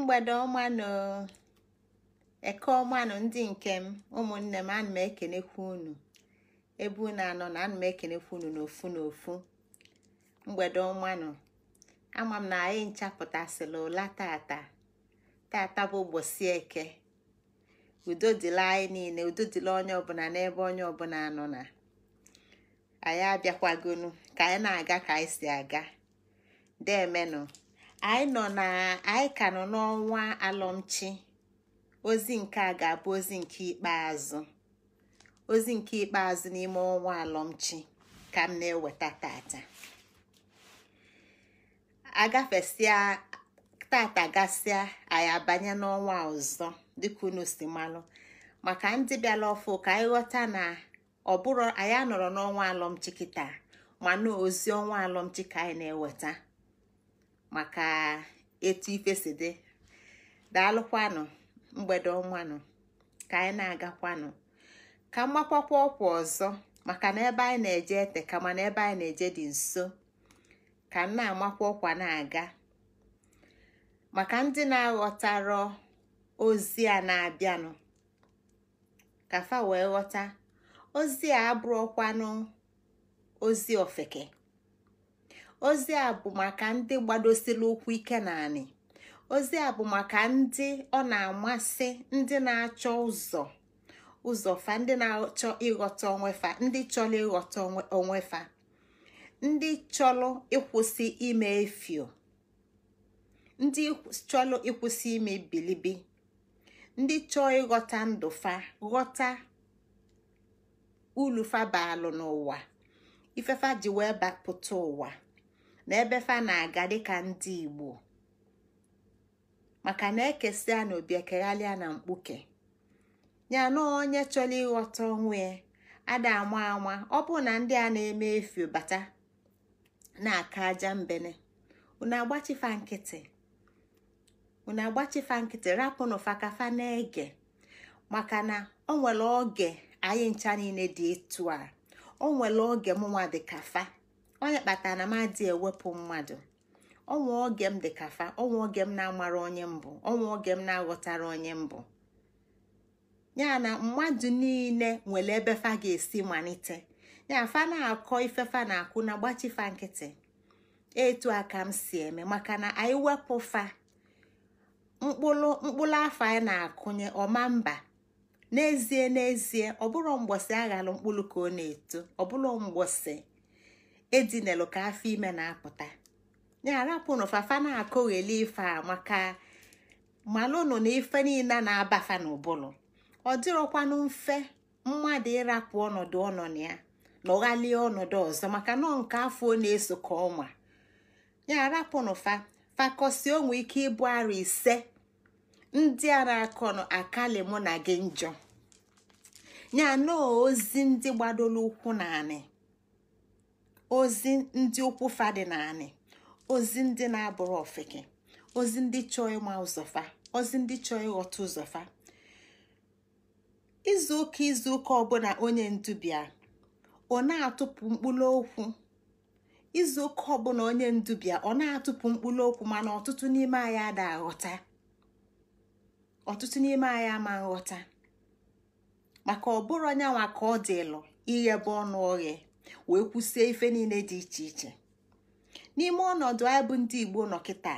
mgbede ọma na eke ọma na ndị nke m ụmụnne m ana m ekenekwa unu ebe unu anọ na ana m ekenekwa unu n'ofu n'ofu mgbede ọma nọ ama m na anyị nchapụtasịla ụla tata tata bụ ụbọchị eke udo dịla anyị niile udo dịla onye ọbụla n'ebe onye ọbụla anọ na anyị abịakwagonu ka anyị na-aga ka anyị si aga demenụ anyị nọ na anyị ka nọ n'ọnwa alọmchi ozi nke a ga-abụ ozi nke ikpeazụ ozi nke ikpeazụ n'ime ọnwa alọmchi ka m na-eweta tata agafesịa tata gasịa anyị abanye n'ọnwa ọzọ dịka unu si malụ maka ndị bịala ọfụ ka anyị ghọta na ọ bụrụ anyị anọrọ n'ọnwa alọmchi kịta mana ozi ọnwa alọmchi ka anyị na-eweta maka etu ife si dị daalụkwanụ mgbede ọnwanụ ka anyị na-agakwanụ ka mgbakwakwa ọkwa ọzọ maka na ebe anyị na-eje ete kama na ebe anyị na-eje dị nso ka m na-amakwa ọkwa na-aga maka ndị na-aghọtara ozi a na-abịanụ ka fa wee ghọta ozi a abụrụ abụrụkwanụ ozi ofeke ozi a bụ maka ndị gbadosiri ụkwụ ike naanị ozi a bụ maka ndị ọ na-amasị ndị na-achọ ụzọ ụzọ fa ndị na-achọ ịghọta onwe fa ndị chọrọ ịghọta onwe fa ndị chọrọ ịkwụsị ime efio ndị chọrọ ịkwụsị ime bilibi ndị chọọ ịghọta ndụ fa ghọta ulu fa baalụ n'ụwa ifefa ji wee bapụta ụwa na fa na-aga dịka ndị Igbo maka na ekesia na na mkpuke ya na onye chọrọ ịghọta onwe ya ada ama ama ọ bụ na ndị a na-eme efu bata na-aka aja mbene unu agbachifa nkịtị unu agbachifa nkịtị fakafa na-ege maka na o nwere oge anyị ncha niile dị etu a o nwere oge mụnwa dị fa onye kpatara na m adị ewepụ mmadụ ọnwa oge m dị kafa ọnwa oge m na-amara onye mbụ ọnwa oge m na-aghọtara onye mbụ ya na mmadụ niile nwere ebe fa ga-esi malite ya fa na-akọ ifefa na-akụ na gbachifa nkịtị etu aka m si eme maka na anyị wepụ fa mkpụrụ mkpụrụ afọ anyị na-akụnye ọma mba n'ezie n'ezie ọ bụrụ mgbọsị aghara mkpụrụ ka ọ na-eto ọ bụrụ mgbọsị edinelu ka afọ ime na-apụta ya arapụnụ fafa na-akụgheli ife a maka malụnụ na ife niile na-abafa n'ụbụlụ ọ dịrọkwanụ mfe mmadụ ịrapụ ọnọdụ ọnọdụ ya na ọghalie ọnọdụ ọzọ maka nọ nke afọ na-eso ka ọnwa ya arapụnụ fa fakọsi onwe ike ịbụ arụ ise ndị a na-akọnụ akali mụ na gị njọ ya na ozi ndị gbadoro ụkwụ na-anị. ozi ndị ụkwụ fa dị naanị ozi ndị na-abụrụ ofeke ozi ndị chọọ ịma ụzọfa ozi ndị chọọ ịghọta ụzọfa izu ụka izu ụka ọbụla onye ndubia ọ na-atụpụ mkpụrụ okwu izu ụka ọbụla onye ndubia ọ na-atụpụ mkpụrụ okwu mana ọtụtụ n'ime anyị ada aghọta ọtụtụ n'ime anyị ama nghọta maka ọbụrụ nwa ka ọ dị dịlụ ighebe ọnụ oghe wee kwụsie ife niile dị iche iche n'ime ọnọdụ anyị bụ ndị igbo nọ kịta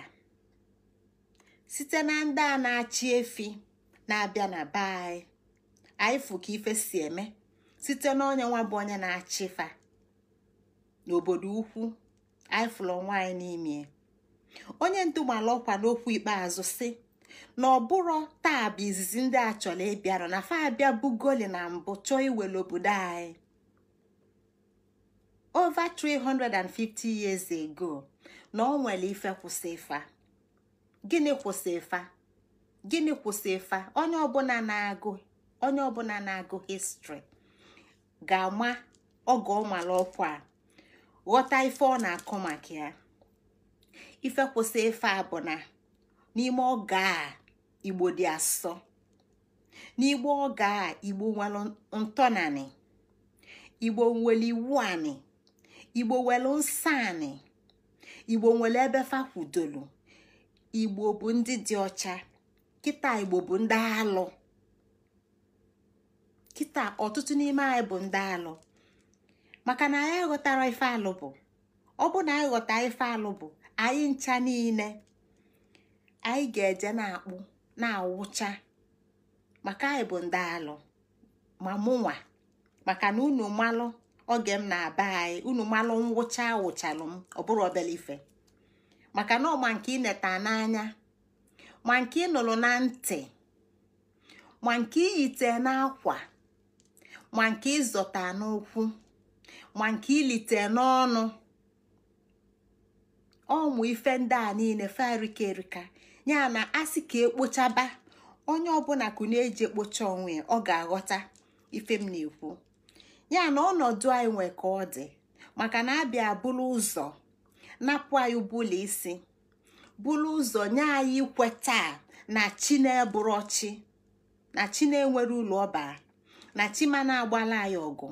site na ndị a na-achị efi na-abịa na be anyị anyị fụ ka ife si eme site na onye nwa bụ onye na-achị fa n'obodo ukwu anyị fụrụ nwaanyị n'ime onye ndu mara ọkwa n'okwu ikpeazụ si na ọbụrụ taa bụ izizi ndị a chọrọ ịbịara na fa abịa goli na mbụ chọọ iwere obodo anyị over 350 years ago na ọ nwere ife kwụsị ịfa gịnị kwụsị ịfa gịnị kwụsị ịfa onye ọbụla na-agụ onye ọbụla na-agụ histri ga-ama oge ọ mara a ghọta ife ọ na-akọ maka ya ife kwụsị a bụ na n'ime oge a igbo dị asọ n'igbo oge a igbo nwere ntọnanị igbo nwere iwu anị igbo nwere nsọanị igbo nwere ebe fakwudolu igbo bụ ndị dị ọcha kịta igbo bụ ndị alụ kịta ọtụtụ n'ime anyị bụ ndị alụ maka na anyị ghọtara ife alụ bụ ọ bụ na anyị ghọta ife alụ bụ anyị ncha niile anyị ga-eje na-akpụ na-awụcha maka anyị bụ ndị alụ ma mụnwa maka na unu malụ oge m na-aba anyị unu malụ ngwụcha wụchalụ m ọ bụrụ obele ife maka na ọma nke ineta n'anya ma nke ịnụrụ na ntị ma nke iyite n'akwa ma nke ịzọta n'ụkwụ ma nke ilite n'ọnụ ọmụ ife ndị a niile farika erika ya na asị ka ekpochaba onye ọbụla kụ na-eji ekpocha onwe ọ ga-aghọta ife m na-ekwu ya na ọnọdụ anyị nwe ka ọ dị maka na abịa bụrụ ụzọ napụ anyị bụla isi bulu ụzọ nye anyị ikwe taa na chi na chi na chi na-enwere ụlọ ọbara na chi ma na-agbala anyị ọgụ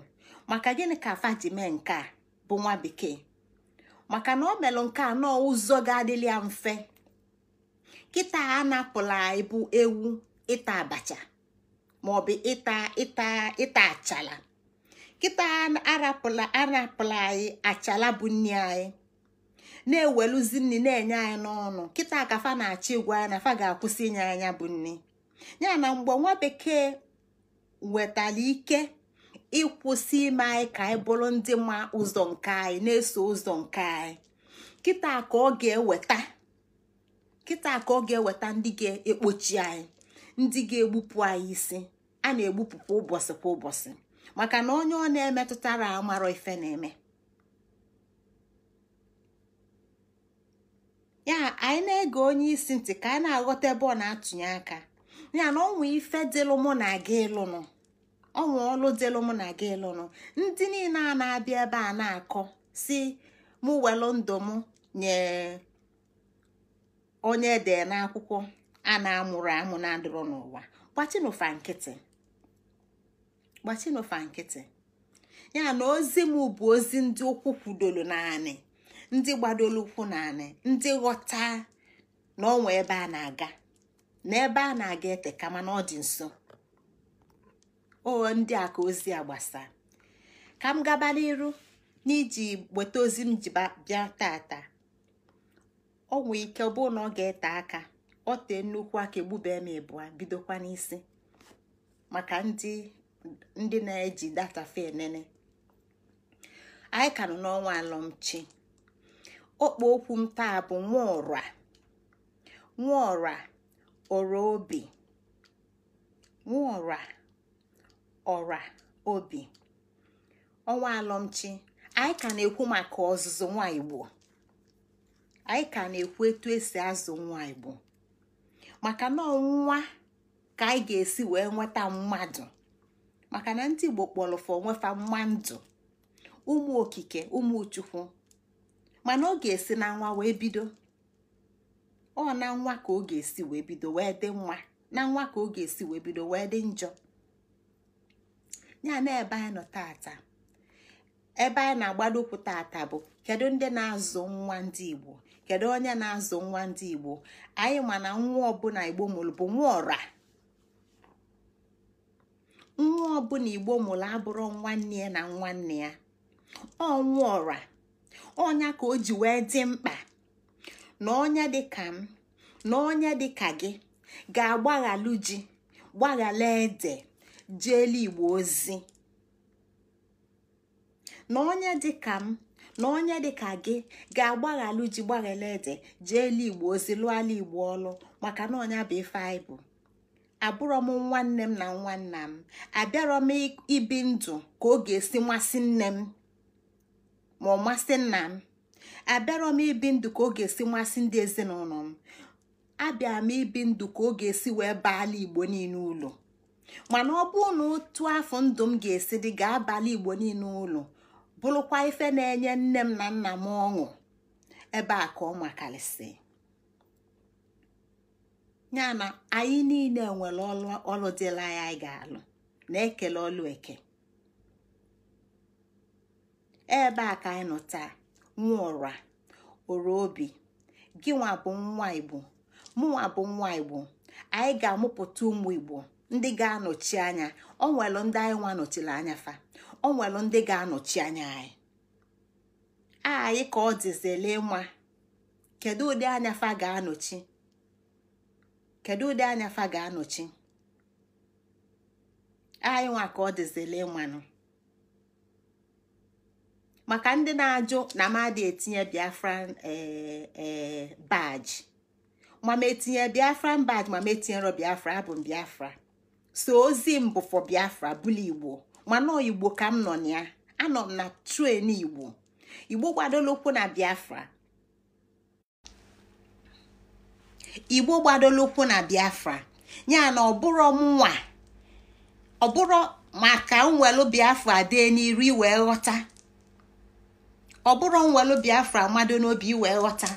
maka gịnị ka fajime ji mee nke a bụ nwa bekee maka na ọ melụ nke nọọ ụzọ ga-adịla ya mfe kịta anapụla anyị bụ ewu ịta abacha maọbụ ịta ịta ịta achala kịta arapụla arapụla anyị achala bụ nni anyị na-eweluzi nni na-enye anyị n'ọnụ kịta ka fa na achị igwe anyị na fa ga-akwụsị inye anya bụ nni ya na mgbe nwa bekee wetara ike ịkwụsị ime anyị e ka anyị bụrụ ndị ma ụzọ nke anyị na-eso ụzọ nke anyị kịta ka ọ ga-eweta kịta ka ọ e. ga-eweta ndị ga-ekpochi e anyị ndị ga-egbupụ anyị isi a na-egbupụ kwa ụbọchị kwa ụbọchị maka na onye ọ na-emetụtara amarọ ife na-eme ya anyị na-ege onye isi ntị ka anyị na-aghọta ebe ọ na-atụnye aka ya na ọnwa ife dịlụ mụ na gị ịlụnụ ọnwa ọlụ dịlụ mụ na gị ịlụnụ ndị niile a na-abịa ebe a na-akọ si mụ welụ ndụ mụ nye onye ede n'akwụkwọ a na-amụrụ amụ na-adịrọ n'ụwa nkịtị gbachinofa nkịtị ya na ozi m bụ ozi ndị ụkwụ kwudoro naanị ndị gbadoro ụkwụ naanị ndị ghọta na ọnwa ebe a na-aga na ebe a na-aga ete kama na ọ dị nso o ndị a ka ozi a gbasa ka m gaba n'iru n'iji weta ozi m ji bịa tata ọ nwee ike ọ bụrụ na ọ ga-ete aka ọ tee nnukwu aka egbube m ịbụa bidokwa n'isi maka ndị ndị na-eji data fe enene anyị ka nọ n'ọnwa alọmchi okpo okwu m taa bụ nwaọra nwaọra ọra obi nwaọra ọra obi ọnwa alọmchi anyị ka na-ekwu maka ọzụzụ nwa igbo anyị ka na-ekwu etu esi azụ nwa igbo maka na nwa ka anyị ga-esi wee nweta mmadụ maka na ndị igbo kpọrọfọ nwefa mma ndụ ụmụ okike ụmụ chukwu mana ọ ga-esi na nwa wee bido ọ na nwa ka ọ ga-esi wee bido wee dị nwa na nwa ka ọ ga-esi wee bido wee dị njọ ya na ebe anyị nọ tata ebe anyị na-agbado ụkwụ tata bụ kedu ndị na-azụ nwa ndị igbo kedu onye na-azụ nwa ndị igbo anyị mana nwa ọbụla igbo mụrụ bụ nwa ọra nwa ọbụla igbo mụrụ abụrụ nwanne ya na nwanne ya ọnwụ ọra ọnya ka o ji wee dị mkpa na dị dịka m na dị dịka gị ga-agbaghalụ ji gbaghala ede igbo ozi na onye dịka m na onye dịka gị ga-agbaghalụ ji gbaghala ede jeelu igbo ozi ala igbo ọlụ maka na ọnya bụ ife anyị abụrọ m nwanne m na nwanna m abịarọ m ibi ndụ ka ọ ga-esi masị nne m ma ọ masị nna m abịarọ m ibi ndụ ka ọ ga-esi masị ndị ezinụlọ m abịa m ibi ndụ ka ọ ga-esi wee baala igbo niile ụlọ mana ọ bụ na otu afọ ndụ m ga-esi dị ga-abalị igbo niile ụlọ bụrụkwa ife na-enye nne m na nna m ọṅụ ebe a ka ọ makarịsị ya na anyị niile nwere ọlụ dịla ya anyị ga-alụ na-ekele ọlụ eke ebe a ka anyị nọ taa nwa ọra ọra obi gị nwa bụ nwa igbo mụnwa bụ nwa igbo anyị ga-amụpụta ụmụ igbo ndị ga-anọchi anya ọ nwere ndị anyị nwa nọchiri anya fa ọ nwere ndị ga-anọchi anya anyị anyị ka ọ dịzele nwa kedu ụdị anya fa ga-anọchi kedu ụdị anya fa ga-anọchi anyị nwa ka ọ dịzile nwanụ maka ndị na-ajụ na mmadụ etinye biafra eh, eh, baji ma m etinye Biafra baji ma m biafra abụ m biafra so ozi m bụ biafra bụla igbo mana igbo ka m nọ na ya anọ m na tren igbo igbo gbadolokwu na biafra igbo gbadolo ụkwụ na biafra ya na ọbụrụ mụnwa ọbụrụ maka nwelu biafra dee n'iri wee ghọta ọbụrụ nwelu biafra mmadụ n'obi wee ghọta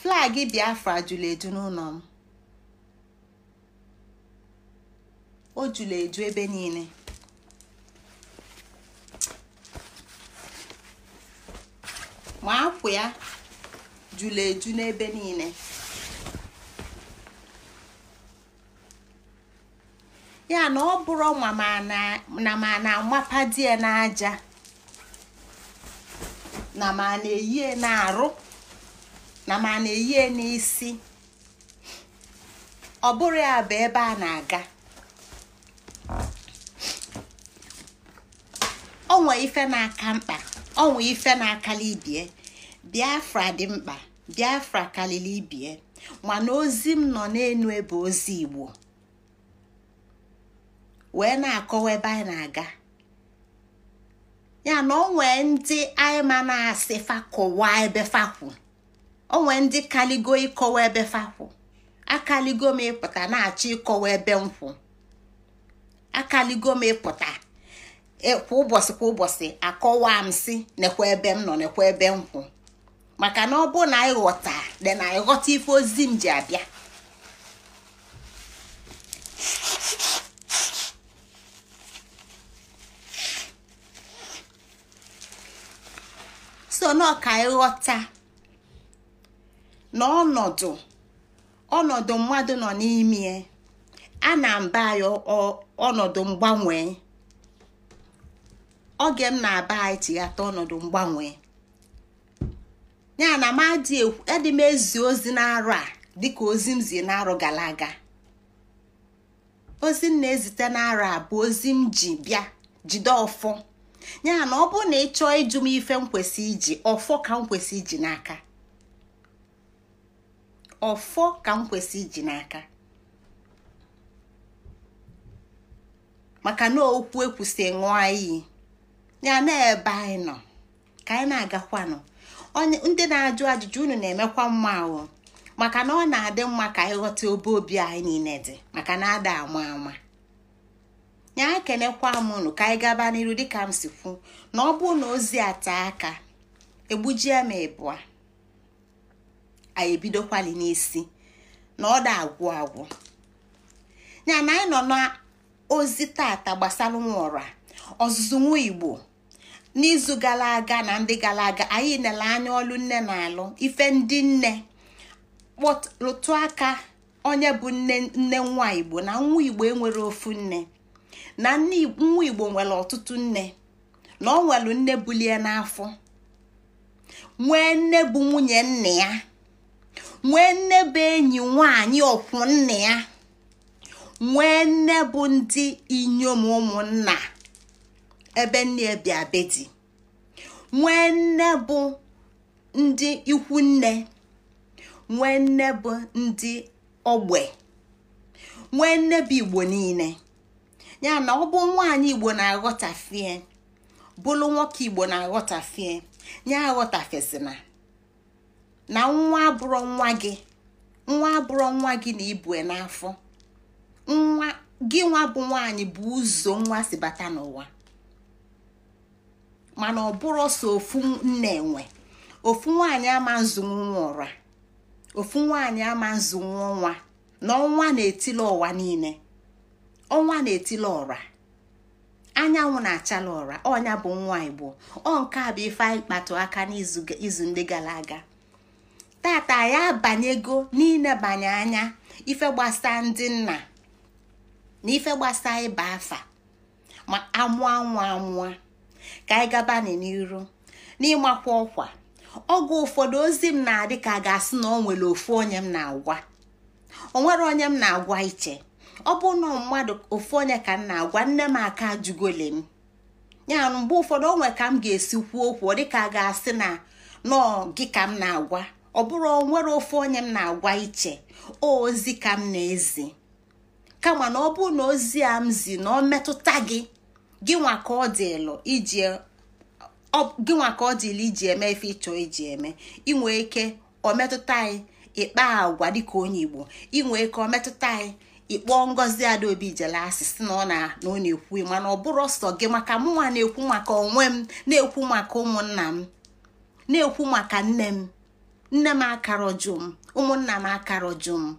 flag biafra jụrụ edu n'ụlọ m o jula eju ebe niile ma akwụ ya jula eju n'ebe niile ya na ọ bụrụ na ma na di ya n'aja na ma na-eyie na-arụ na ma na-eyie n'isi ọ bụrụ ya bụ ebe a na-aga onwe ife na-aka mkpa onwe ife na-akali ibie biafra dị mkpa biafra kalili ibie mana ozi m nọ n'elu ebe ozi igbo wee na-akọwa ebe anyị na-aga ya na onwe ndị anyị na-asị fakọwa ebe fakwu onwe ndị kaligo ịkọwa ebe fakwu akaligo m ịpụta na-achọ ịkọwa ebe nkwụ akaligo m ịpụta E, kwa ụbọchị kwa ụbọchị akọwa m si nekwa ebe m nọ nekwa ebe m kwụ maka na ọ bụ na ịghọta dị na ịghọta ife ozi m ji abịa so n'ọka ịghọta na ọnọdụ ọnọdụ mmadụ nọ n'ime a na mba ya ọnọdụ mgbanwe oge m na-aba anyị tighata ọnọdụ mgbanwe ya na m adị m ezi ozi n'arọ a dịka ozi m zie n'arọ gara aga ozi m na-ezite n'arọ a bụ ozi m ji bịa jide ọfọ ya na ọ bụrụ na ị chọọ ịjụ m ife m kwesị iji ọfọ ka m kwesị iji n'aka ọfọ ka m iji n'aka maka na okwu ekwusị ṅụọ iyi ya na-ebe anyị nọ ka anyị na-agakwanụ onye ndị na-ajụ ajụjụ unu na-emekwa mma ahụ maka na ọ na-adị mma ka anyị ghọta obe obi anyị niile dị maka na ada ama ama ya ekenekwa m unu ka anyị gaba n'iru dịka m si kwu na ọ bụrụ na ozi ata aka egbujie m ịbụa anyị ebidokwali n'isi na ọ da agwụ agwụ ya na anyị nọ n'ozi tata gbasara nwa ọra ọzụzụ nwa igbo n'izu gara aga na ndị gara aga anyị nele anya ọlụ nne na alụ ife ndị nne lụtụ aka onye bụ nne nne nwa igbo na nwa igbo enwere ofu nne na nwa igbo nwere ọtụtụ nne na ọ nwere nne bulie n'afọ nwee nne bụ nwunye nna ya nwee nne bụ enyi nwanyị ọkwụ nna ya nwee nne bụ ndị inyom ụmụnna ebe nne bịa be dị, nwee nne bụ ndị ikwu nne nwee nne bụ ndị ogbe nwee nne bụ igbo niile ya na ọ bụ nwaanyị igbo na-aghọtafie bụlụ nwoke igbo na-aghọtafie ya aghọtafesina na nwa abụrụ nwa gị nwa abụrụ nwa gị na ibue n'afọ nwa gị nwa bụ nwaanyị bụ ụzọ nwa si bata n'ụwa mana ọ bụrụ so ofu nne nwe ofu nwaanyị ama nzụnwu nwa ofu nwaanyị ama nzụnwu nwa na ọnwa na-etili ụwa niile ọnwa na etile ọra anyanwụ na-achala ụra ọnya bụ nwa igbo ọ nke a bụ ife anyị kpatụ aka n'izu ndị gara aga tata ya abanyego n'inebanye anya ife gbasa ndị nna na ife gbasa ịba afa ma amụa anwụ amụọ ka anyị gaba n'iru n'ịmakwa ọkwa ọgwụ ụfọdụ ozi m na-adị ka a ga-asị na ọ nwere ofu onye m na-agwa nwere onye m na-agwa iche ọ bụ na mmadụ ofu onye ka m na-agwa nne m aka ajụgole m ya mgbe ụfọdụ onwe ka m ga-esi kwuo okwu dịka a ga-asị na nọọ gị ka m na-agwa ọ bụrụ onwere ofu onye m na-agwa iche ozi ka m na-ezi kama na ọ bụ na ozi a m zi na ọ metụta gị gịnwa ka ọ dịlụ iji e, iji eme ife ịchọ iji eme inwe ike ọ anyị ịkpa agwa dịka onye igbo inwe ike ọ anyị ịkpọ ngozi adaobi jele si na ọ na na ọ na-ekwu mana ọ bụrụ ọsọ gị maka mụnwa na-ekwu maka onwe m na-ekwu maka ụmụnna m na-ekwu maka nne m nne m akarọjụ m ụmụnna m akarọjụ m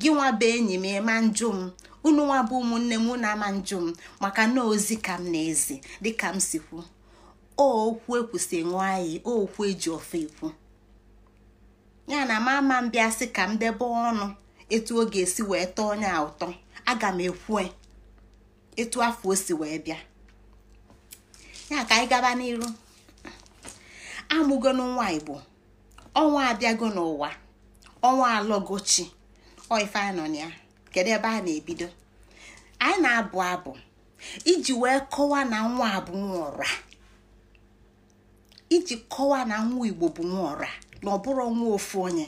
gị nwa bụ enyi m ịma njụ m unu nwa bụ ụmụnne m na ama njụ m maka na ozi ka m na-ezi dịka m si kwu okwu ekwusị ṅụọ anyị okwu eji ofe ekwu ya na ama m bịa sị ka m debe ọnụ etu ọ ga-esi wee tọọ onye a ụtọ aga m ekwu etu afọ o si wee bịa ya ka anyị gaba n'iru amụgo nwa igbo ọnwa abịago n'ụwa ọnwa alọgochi oife anọ na ya kedu ebe a na-ebido anyị na-abụ abụ iji wee kọwaa na nwa abụ nwa ọra iji kọwa na nwa igbo bụ nwa ọra na ọ nwa ofu onye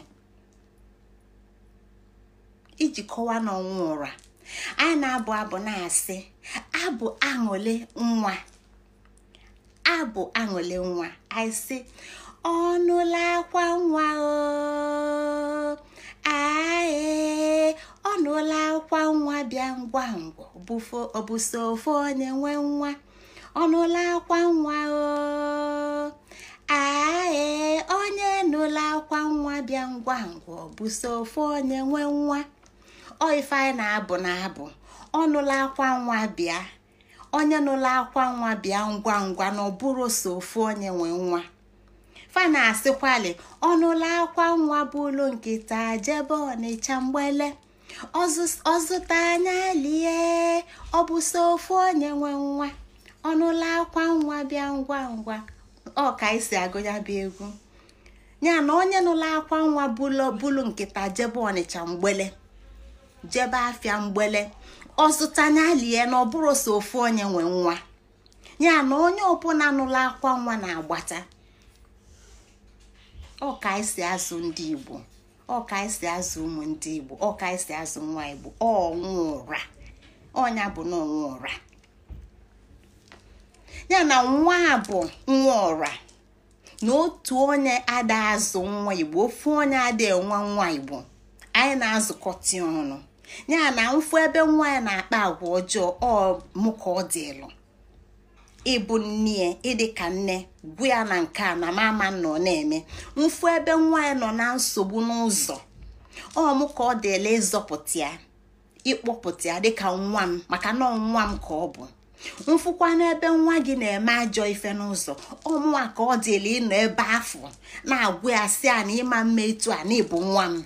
iji kọwa na ọnwa ụra anyị na-abụ abụ na-asị abụ aṅụle nwa abụ aṅụle nwa anyị sị ọnụla akwa nwa o ae anụla akwa nwa bịa ngwa ngwa ọ bụ onye nwe nwa ọnụla akwa nwa o onye nụla akwa nwa bịa ngwa ngwa ọ bụ onye nwe nwa ọ na-abụ na-abụ ọnụla akwa nwa bịa onye nụla akwa nwa bịa ngwa ngwa na ọbụrụ so onye nwe nwa fa na-asịkwali ọnụla akwa nwa bụ ụlọ nkịta jebe ọnịcha mgbele ọzụta anya lie ọ bụ so ofu onye nwe nwa ọnụla akwa nwa bịa ngwa ngwa ọ ka esi agụ ya bụ egwu ya na onye nụla akwa nwa bulu nkịta jebe ọnịcha mgbele jebe afịa mgbele ọzụta anya lie na ọ bụrụ so ofu onye nwe nwa ya na onye ọbụla nụla akwa nwa na-agbata ọ ka esi azụ ndị Igbo ọ azụ ụmụ ndị igbo ọ azụ nwa igbo ọnwa ụra ọnya bụ na ọnwa ụra ya na nwa bụ nwa ọra na otu onye ada azụ nwa igbo ofu onye ada enwe nwa igbo anyị na-azụkọta ọnụ ya na mfu ebe nwa ya na-akpa agwa ọjọọ ọ mụ ka ọ dịlụ ịbụ nne ịdị ka nne gwu ya na nke a na mama nọ na-eme mfu ebe nwa ya nọ na nsogbu n'ụzọ ọ m ka ọ dịla ịzọpụta ya ịkpọpụta ya dịka nwa m maka na nwa m ka ọ bụ mfụkwa n'ebe nwa gị na-eme ajọ ife n'ụzọ ọmụnwa ka ọ dịla ịnọ ebe afọ na-agwụ ya sị a na ịma mma etu a na nwa m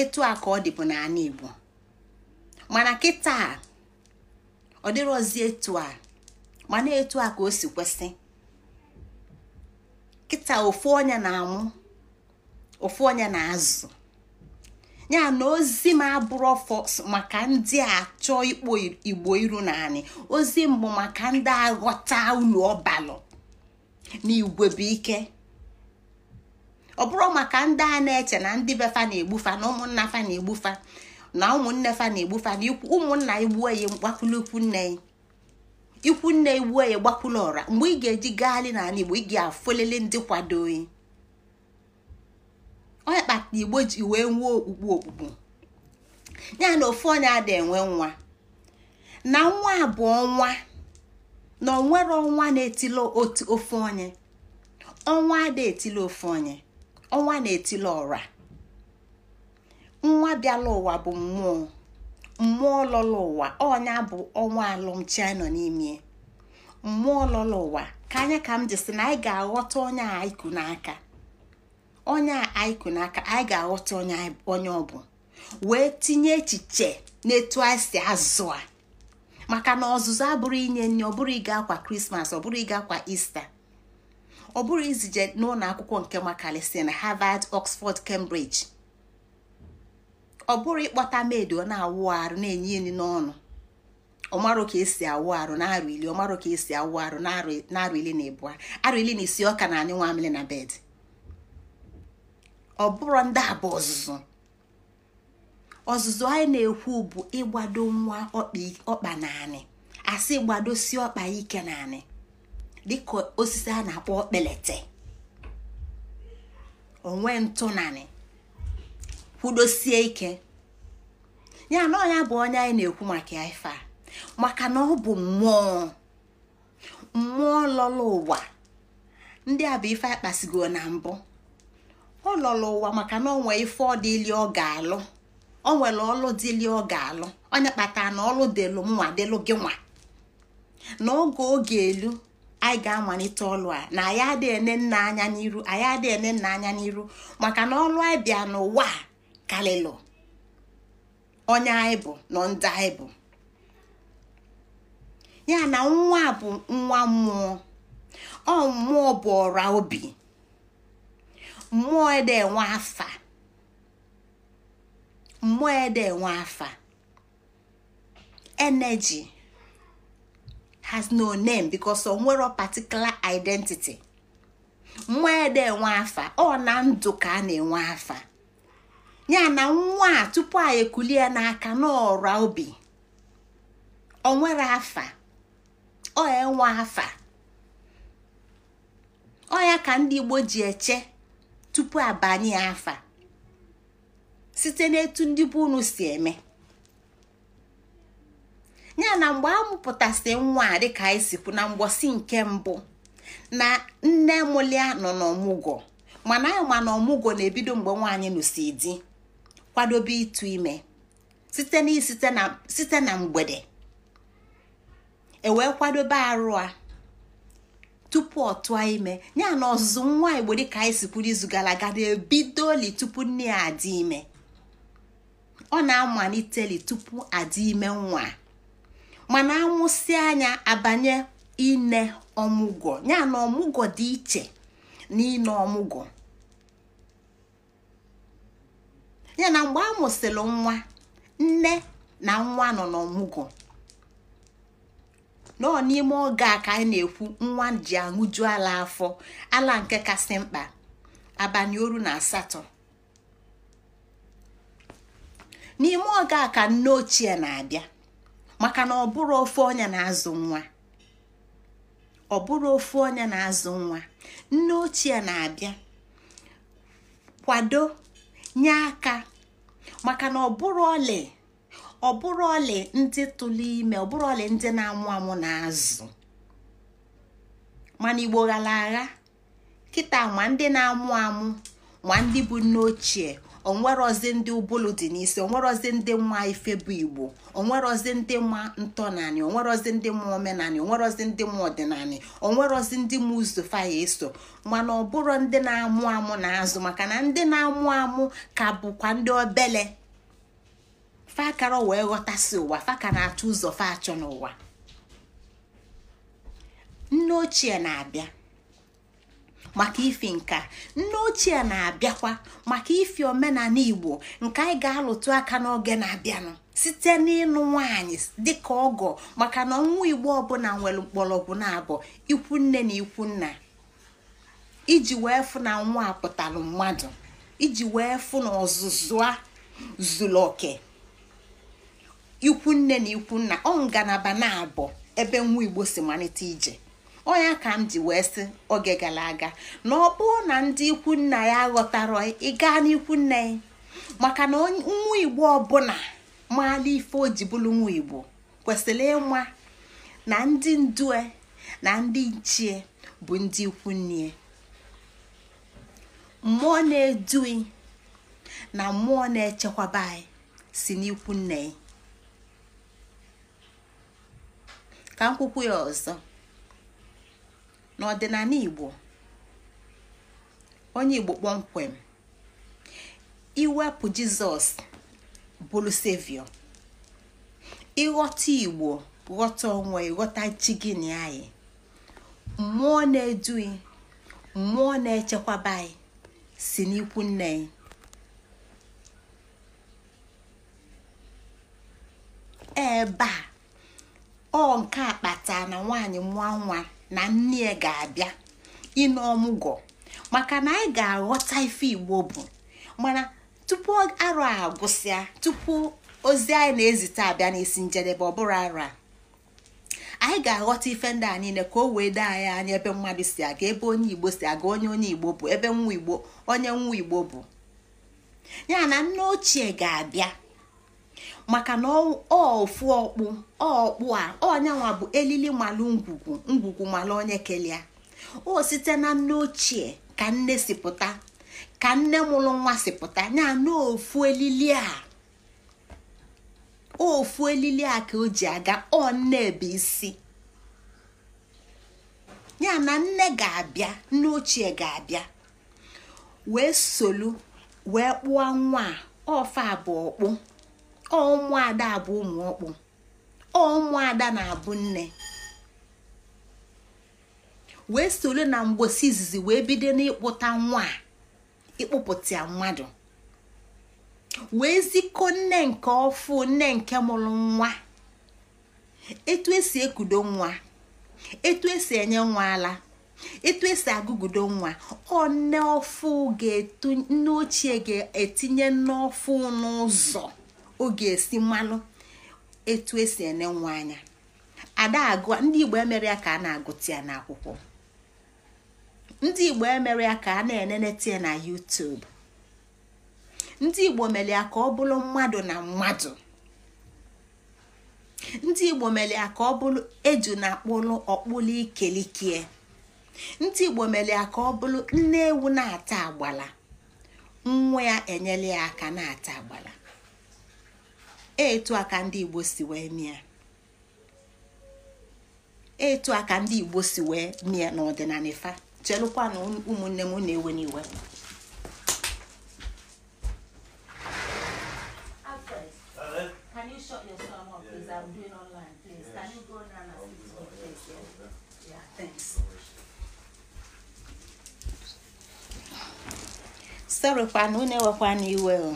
etu a ka ọ dịbụ n'ala Igbo mana kịta ọ dịrọzi etu a mana etu a ka o si kwesị kịta ofu onye na-amụ ofu onye na-azụ ya na ozi m abụrụ maka ndị a achọ ikpo igbo iru naanị ozi mbụ maka ndị aghọta unu ọbalụ na igwe bụ ike ọ bụrụ maka ndị a na-eche na ndị be na-egbufa na ụmụnna fa na-egbufa na ụmụnne fa na-egbufa na ụmụnna igbuo ya nne ya ikwu nne iwu ya gbakwula ọra mgbe ị ga-eji gaali n'ala igbo ị ga-afụlele ndị kwado oyi onye kpatara igbo ji wee nwee okpukpe okpukpu ya na ofe onye ada enwe nwa na nwa bụ ọnwa na onwere ọnwa na-etila ofe onye ọnwa ada etila ofe onye ọnwa na etile ọra nwa bịala ụwa bụ mmụọ mmụọ lọlọ ụwa ọnya bụ ọnwa alụmchi nọ n'ime mmụọ lọlọ ụwa ka anya ka m jisi na anyị ga-aghọta onye a n'aka onye a n'aka anyị ga-aghọta onye ọ bụ wee tinye echiche n'etu anyị si azụ a maka na ọzụzụ abụrụ inye nri ọ bụrụ ịga akwa krismas ọ bụrụ ịga akwa ista ọ bụrụ izije n'ụlọ akwụkwọ nke makalisi na harvard oxford cambridge. ọ bụrụ ịkpọta meedi ọ na-awụ arụ na-enye enyi n'ọnụ ọmarụ ka esi awụ arụ na-arụ ili ọmarụ ka esi awụ arụ na-arụ ili na ịbụa arụ ili na isi ọka na anyị nwa amịlị na bed ọ bụrụ ndị abụ ọzụzụ ọzụzụ anyị na-ekwu bụ ịgbado nwa ọkpa naanị asị gbado si ọkpa ike naanị dịka osisi a na-akpọ kpelete onwe ntụ naanị. kwudosie ike ya na ọnya bụ onye anyị na-ekwu maka ya ife a maka na ọ bụ mmụọ mmụọ lọrọ ụwa ndị a bụ ife akpasigo na mbụ ọ lọrọ ụwa maka na onwe ife ọ dịli ọ ga-alụ o nwere ọlụ dịli ọ ga-alụ onye kpatara na ọlụ delu nwa delu gị nwa na oge elu anyị ga-amalite ọlụ a na anyị adịghị ene nna anya n'iru anyị adịghị ene nna anya n'iru maka na ọlụ anyị bịa n'ụwa a kalịlụ onye anyị bụ na ndị anyị bụ ya na nwa bụ nwa mmụọ ọ mmụọ bụ ọra obi mmụọ ede enwe afa mmụọ ede enwe afa energy has no name because o particular identity mmụọ ede enwe afa ọ na ndụ ka a na-enwe afa ya na nwa a tupu a ekulie n'aka a obi ọ nwere afa ọ enwe afa ọ ya ka ndị Igbo ji eche tupu abanye afa site n'etu ndị bụ unu si eme ya na mgbe a nwa a dịka anyị sikwu na mgbọsi nke mbụ na nne mụlia nọ n'ọmụgwọ mana anyị ma na ọmụgwọ na-ebido mgbe nwaanyị nụsi di kwadobe ịtụ ime site na mgbede ewee kwadobe arụ a tupu ọ tụọ ime ya na ọzụzụ nwa igbo dịka anyị si izu gara aga na-ebidoli tupu nne ya adị ime ọ na-amaliteli tupu adị ime nwa mana amụsị anya abanye ine ọmụgwọ ya na ọmụgwọ dị iche na ine ọmụgwọ ya na mgbe a mụsịrị nwa nne na nwa nọ n'ọmụgwọ nọ n'ime oge a ka anyị na-ekwu nwa ji aṅụju ala afọ ala nke kasị mkpa abalị oru na asatọ n'ime oge a ka nne ochie na-abịa maka na ọ bụrụ ofe onye na-azụ nwa ọ bụrụ onye na-azụ nwa nne ochie na-abịa kwado nye aka maka na ọbụrụ ọlị ọbụrụ ọlị ndị tụlụ ime ọbụrụ ọlị ndị na-amụ amụ na-azụ mana igbo ghara agha kịta ma ndị na-amụ amụ ma ndị bụ nne ochie onwerozi ndị ụbụlụ dị n'isi onwerozi ndị nwa ife bụ igbo onwerozi ndị ma ntọnanị onwerozi ndị omenani, omenanị onwerozi ndị nwa ọdịnanị onwerozi ndị nwa ụzọ eso mana ọ bụrụ ndị na-amụ amụ na azụ maka na ndị na-amụ amụ ka bụkwa ndị obele fakara wee ghọtasị ụwa faka na-achọ ụzọ fa achọ n'ụwa nne ochie na-abịa maka ifi nka nne ochie na-abịakwa maka ifi omenala igbo nke anyị ga-alụtụ aka n'oge na-abịanụ site n'ịnụ nwaanyị dịka ọgọ maka na ọnwa igbo ọbụla nwere mgbọrọgwụ na-abụ ikwu nne na ikwu nna iji wee fụ na nwa pụtara mmadụ iji wee fụ na ọzụzụ a zuru oke ikwu nne na ikwu nna ọ ngalaba na-abụ ebe nwa igbo si malite ije ọ ya ka m ji wee sị oge gara aga na ọ bụrụ na ndị ikwu nna ya ghọtara ịga n'ikwu nna ya maka na nwa igbo ọbụla maala ife o ji bụrụ nwa igbo kwesịrị ịma na ndị ndue na ndị nchie bụ ndị ikwu nne e. mmụọ na-edui na mmụọ na-echekwaba anyị si n'ikwu nne e. ka m kwukwu ya ọzọ n'ọdịnala igbo onye igbo kpọmkwem iwepụ jizọs bụrụ sevio ịghọta igbo ghọta onwe ghọta chi gị anyị mmụọ na-edu mmụọ na-echekwaba anyị si n'ikwu nne anyị ebe a ọ nke akpata na nwaanyị mụọ nwa na nne ya ga-abịa ịnụ ọmụgwọ maka na anyị ga-aghọta ife igbo bụ mana tupu arụ a gwụsịa tupu ozi anyị na-ezite abịa n'isi njedebe ọ bụrụ arụ a anyị ga-aghọta ife ndị a niile ka o wee dee anyị anya ebe mmadụ si aga ebe onye igbo si aga onye onye igbo bụ ebe nwa igbo onye nwa igbo bụ ya na nne ochie ga-abịa maka na ofu ọkpụ ọkpụ a ọnyanwa bụ elili malụ ngwugwu ngwugwu onye kelia o site na nne ochie ka nne si pụta ka nne mụrụ nwa si pụta ya na ofu elili a ofu elili a ka o ji aga ọ nne bụ isi ya na nne ga-abịa nne ochie ga-abịa wee solu wee kpụọ nwa ọfa bụ ọkpụ ọmụada bụ ụmụ ọkpụ ọmụada na-abụ nne wee ole na mgbosi izizi wee bido n'ịkpụta nwa ịkpụpụta mmadụ wee zikọ nne nke ọfụ nne nke mụrụ nwa etu esi ekudo nwa etu esi enye nwa ala etu esi agụgudo nwa ọnne ga-etu nne ochie ga-etinye n'ọfụ n'ụzọ oge esi mmanụ etu esi ene nwa anya ada agụ ndị igbo emere ya ka a na-agụta ya n'akwụkwọ ndị igbo emere ya ka a na-eneneta ya na YouTube ndị igbo mere ya ka ọ bụrụ mmadụ na mmadụ ndị igbo mere ya ka ọ bụrụ eju na akpụlụ ọkpụlụ ikelikie ndị igbo mere ya ka ọ bụrụ nne ewu na-ata agbala nwa ya enyela ya aka na-ata agbala etu aka ndị igbo si wee mie etu a ndị igbo si wee mie n'ọdịnala ifa chelụkwa na ụmụnne m na-ewe n'iwe sorokwa na unu iwe o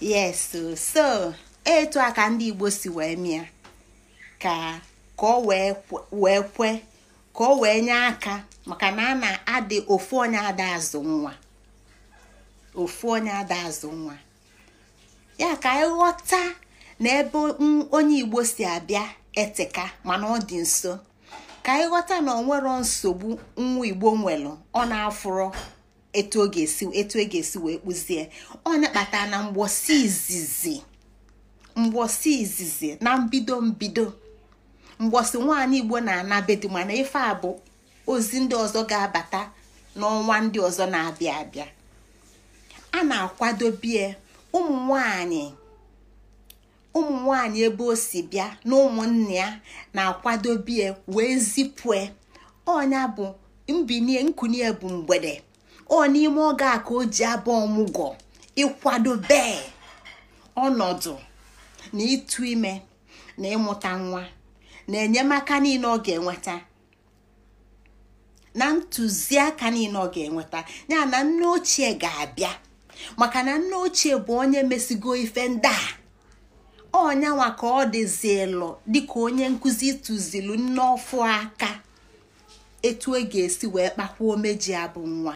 yes so etu a ka ndị igbo si wee mịa ka ka ọ wee kwe ka ọ wee nye aka maka na a na-adị ofu onye ada azụ nwa ofu onye ada azụ nwa ya ka ịghọta na ebe onye igbo si abịa eteka mana ọ dị nso ka ịghọta na ọ nwero nsogbu nwa igbo nwere ọ na-afụrụ etu oge esi etu e ga-esi wee kpụzie ọ na-akpata na izizi izizi na mbido mbido mgbosi nwaanyị igbo na-anabedu mana ife a bụ ozi ndị ọzọ ga-abata n'ọnwa ndị ọzọ na-abịa abịa a na-akwadobie ụmụ nwanyị ụmụ nwanyị ebe o si bịa na ụmụnne ya na-akwadobie wee zipue ọnya bụ mbinie nkunie bụ mgbede ọ n'ime oge a ka o ji abụ ọmụgwọ ịkwado bee ọnọdụ na ịtụ ime na ịmụta nwa na enyemaka niile ọ ga-enweta na ntụziaka niile ọ ga-enweta ya na nne ochie ga-abịa maka na nne ochie bụ onye mesigo ife ndị a ọnyanwa ka ọ dịzilu dịka onye nkụzi tụzilu nne aka etu e ga-esi wee kpakwuo meji abụ nwa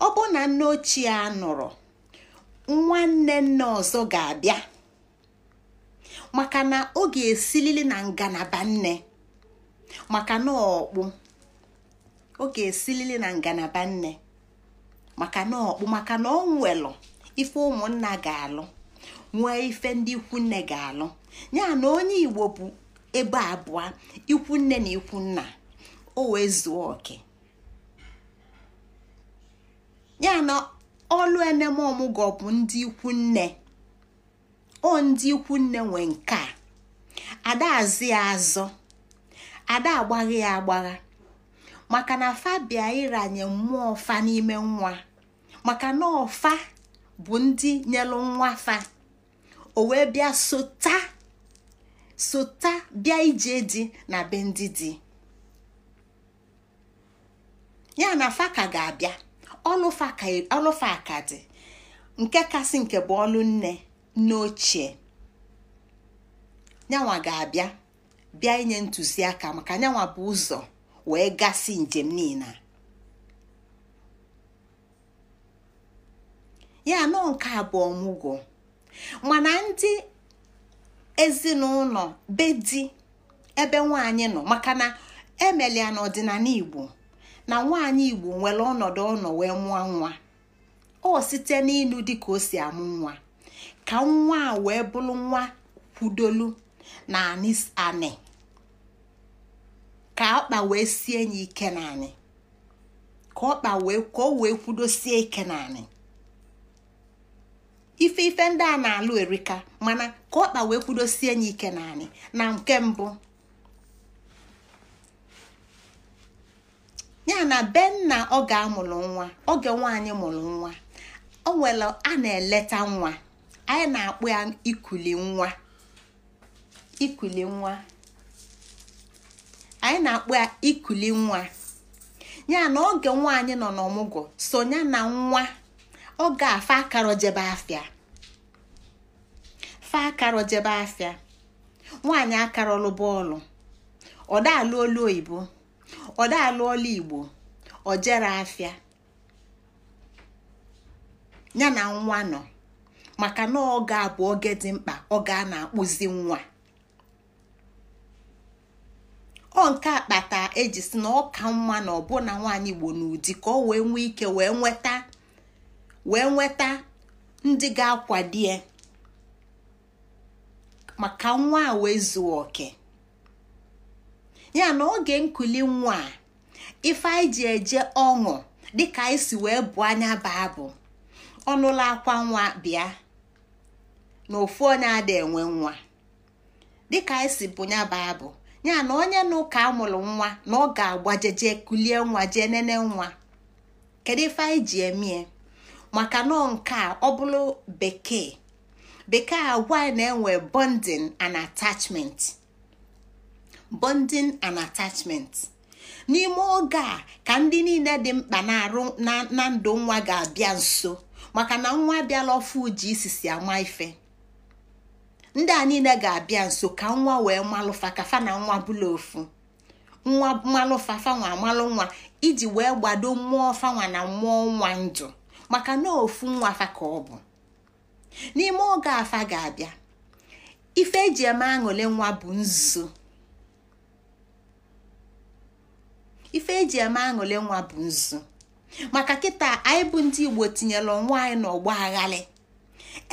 Ọ bụ na nne ochie a nụrụ nwanne nne ọzọ ga-abịa maka na ọ ga-esilili na ngalaba nne maka na ọkpụ maka na ọkpụ maka na ọ nwelụ ife ụmụnna ga-alụ nwee ife ndị ikwu nne ga-alụ ya onye Igbo bụ ebe abụọ ikwu nne na ikwu nna o wee zuo oke ya na ọlụ ọmụgwọ bụ ndị ikwu nne o ndị ikwu nne nwe nke a ada ya azọ ada agbagha ya agbagha maka na fabia ịranye mmụọ fa n'ime nwa maka na ọfa bụ ndị nyelụ nwa fa o wee bịa sota sota bịa ije dị na be ndị dị ya na faka ga-abịa ọlụfa faka e, dị nke kasị nke bụ ọlụ nne nne ochie ga-abịa bịa inye ntụziaka maka yanwa bụ ụzọ wee gasị njem niile ya nọ nke abụọ mụgo mana ndị ezinụlọ be di ebe nwanyị nọ maka na emelia na igbo na nwanyị igbo nwere ọnọdụ ọnọ wee mụọ nwa ọ site n'ịlụ dị ka o si amụ nwa ka nwa a wee bụrụ nwa kwudolu na anị ka ọkpa wee sie ya ike naanị ka ọkpa wee ka o wee kwudosie ike na ife ife ndị a na-alụ erika mana ka ọkpa wee kwudosie ya ike na anyị na nke mbụ ya na benna oge amụrụ nwa oge nwaanyị mụrụ nwa o nwere a na-eleta nwa anyị na-akpụ ya ikuli nwa ikuli nwa anyị na-akpụ ya ikuli nwa ya na oge nwaanyị nọ n'ọmụgwọ so ya na nwa ọ ga-afa akara jebe akara nwaanyị akarọlụ bọọlụ ọdaalụ olu oyibo ọdaalụ igbo ojere afia ya na nwa nọ maka na oge a bụ oge dị mkpa ọ a na-akpụzi nwa ọ nke akpata eji si na ọ ka mma na ọbụna nwaanyị igbo n'ụdị ka ọ wee nwee ike wee nweta wee nweta ndị ga akwadie maka nwa a wee zuo oke ya na oge nkuli nwa a ife anyị ji eje ọṅụ dịka anyị si wee bụ anya baa bụ ọnụla akwa nwa bịa na ofu onye ada enwe nwa dịka anyị si bụ ya baa bụ ya na onye na ụka amụrụ nwa na ọ ga-agbajeje kulie nwa jee nene nwa kedu ife anyị ji emie maka nọ nke a ọ bụrụ bekee bekee agwa na-enwe bonding and attachment bonding and attachment n'ime oge a ka ndị niile dị mkpa na-arụ na ndụ nwa ga-abịa nso maka na nwa abịala ọfụ ji isisi ama ife ndị a niile ga-abịa nso ka nwa wee malụfa ka na nwa bụla ofu nwa malụfa fanwa amalụ nwa iji wee gbado mmụọ fanwa na mmụọ nwa ndụ maka na ofu nwa ka ọ bụ n'ime oge afa ga abia ife eji eme aṅụle nwa bu nzu maka kịta anyị bụ ndị igbo tinyere onwe anyị n'ọgba aghalị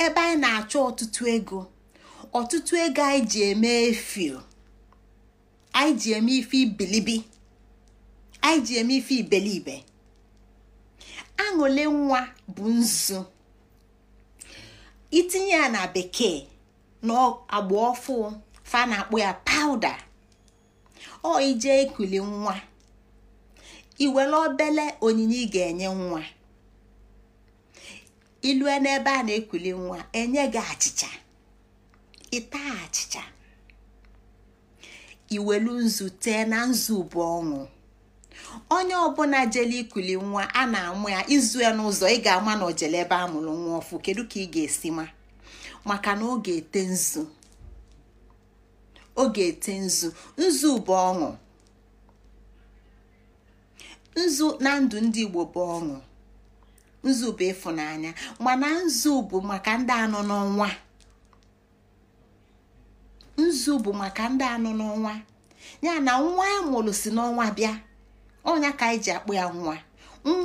ebe anyị na-achọ ọtụtụ ego ọtụtụ ego anyị ji eme efio anyị ji eme ife ibilibi anyị ji eme ife ibelibe aṅụle nwa bụ nzu itinye ya na bekee na agba ọfụ fa na-akpụ ya pawụda ọ ije ekuli nwa iwere obele onyinye ị ga-enye nwa ilue n'ebe a na-ekuli nwa enye gị achịcha ịta achịcha iwelu nzu tee na nzu bụ ọṅụ. onye ọbụla jele ikuli nwa a na-amụ ya ya n'ụzọ ị ga-ama na ojele ebe a mụrụ nwa ọfụ kedu ka ị ga-esi ma maka na oge ete nzu ete nzu nzu bụ ọṅụ nzu na ndụ ndị igbo bụ ọṅụ nzu bụ ịfụnanya mana nzu bụ maka ndị anọ n'ọnwa nzu bụ maka ndị anọ n'ọnwa ya na nwa amụrụ mụrụ si n'ọnwa bịa onye ka anyị e ji akpụ ya nwa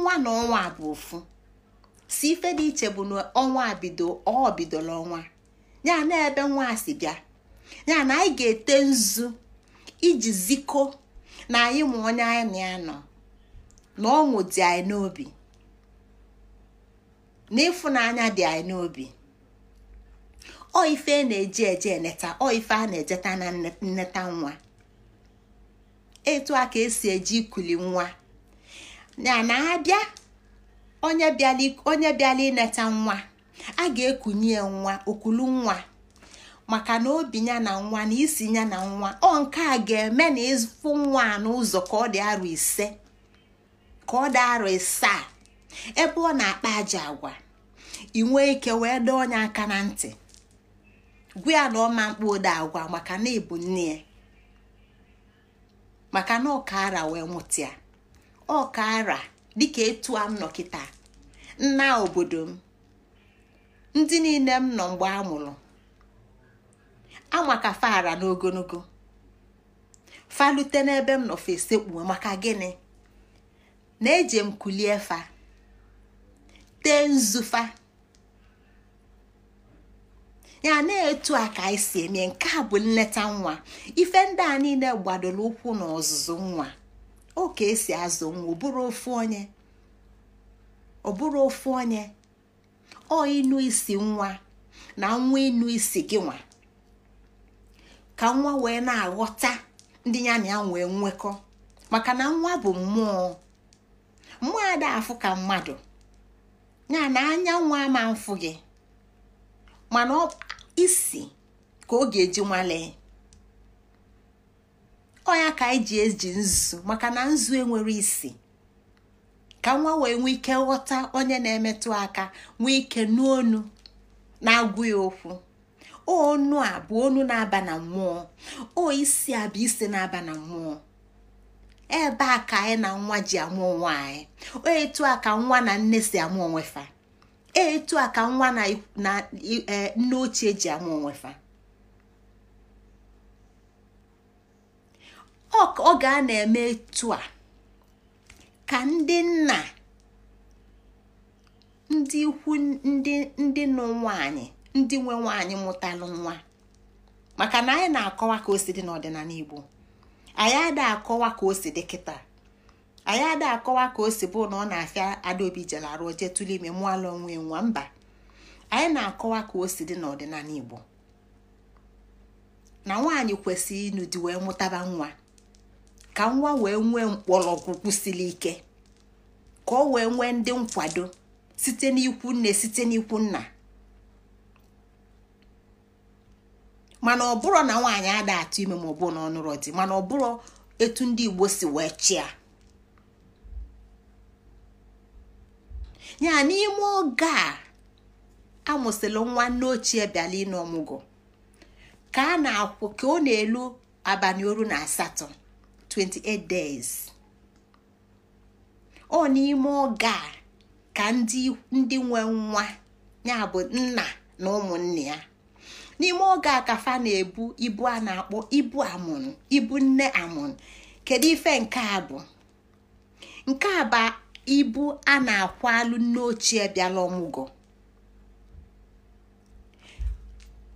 nwa na ọnwa bụ ofu si ife dị iche bụ na ọnwa bido ọ bidola ọnwa ya na ebe nwa si bịa ya na anyị ga-ete nzu iji ziko na anyị ma onye anyị na ya nọ na ọṅụ dị anyị n'obi na ịfụnanya dị anyị n'obi ọ ife na-eji eje eneta ọ ife a na-ejeta na nneta nwa etu a ka esi eji ikuli nwa na na abịa onye bịala ineta nwa a ga-ekunye nwa okulu nwa maka na obi ya na nwa na isi ya na nwa ọ nke ga-eme na ịfụ nwa n'ụzọ ka ọ dị arọ ise ka ebe ọ na-akpa aja agwa ị ike wee dọọ onye aka na ntị gwa ya na ọma mkpa ode agwa maka na ịbụ nne ya maka na ọkara wee mụtịa ọkara dịka etu a m nọ kịta nna obodo m ndị niile m nọ mgbe a mụrụ amaka fara n'ogologo falute n'ebe m nọ fesekpuo maka gịnị na-eje m kulie fa tee nzufa ya na-etu a ka anyị si eme nke a bụ nleta nwa ife ndị a niile gbadoro ụkwụ na nwa o ka esi azụ nwa ofe onye ọ onye ọ isi nwa na nwa ịnụ isi gị nwa ka nwa wee na-aghọta ndị ya na ya wee nwekọ maka na nwa bụ mmụọ mmụọ ada afụ ka mmadụ ya na anya nwa ama mfụ gị mana isi ka ọ ga-eji nwalee ọya ka anyị ji eji nzu maka na nzu enwere isi ka nwa wee nwee ike ghọta onye na-emetụ aka nwee ike n'onu na-agụ ya okwu onu a bụ onu na-aba na mmụọ o isi a bụ isi na-aba na mmụọ ebe a ka anyị na nwa ji amụ nwa anyị etu a ka nwa na nne si amụ onwefa etu a ka nwa na e, nne ochie ji amụ onwefa ọ ga a na-eme etu a ka ndị nna ndị ikwu ndị nụ ndị nwe nwaanyị mụtalụ nwa maka na anyị na-akọwa ka osi dị n'ọdịnala Igbo anyị ada akọwa ka o si dị kịta anyị ada akọwa ka o si bụ na ọ na-afịa adaobi jelarụ jee tụle ime mụala onwe nwa mba anyị na-akọwa ka o si dị n'ọdịnala igbo na nwaanyị kwesịrị ịnụ di wee mụtaba nwa ka nwa wee nwee mkpọrọgwụ siri ike ka ọ wee nwee ndị nkwado site n'ikwu nne site n'ikwu nna mana ọ bụrụ na nwaanyị ada atụ ime ma ọ na ọ nụrụ di mana ọ bụrụ etu ndị igbo si wee chịa ya n'ime oge a nwa nwanne ochie bịala ọmụgụ ka a na-akwụ ka ọ na-elu abalị oru na asatọ 28 days ọ n'ime oge a ka ndị nwe nwa ya bụ nna na ụmụnne ya n'ime oge a ka fa na-ebu ibu a na-akpọ ibu amụrụ ibu nne amụrụ kedu ife nke a bụ nke a bụ ibu a na-akwalụ nne ochie bịala ọmụgwọ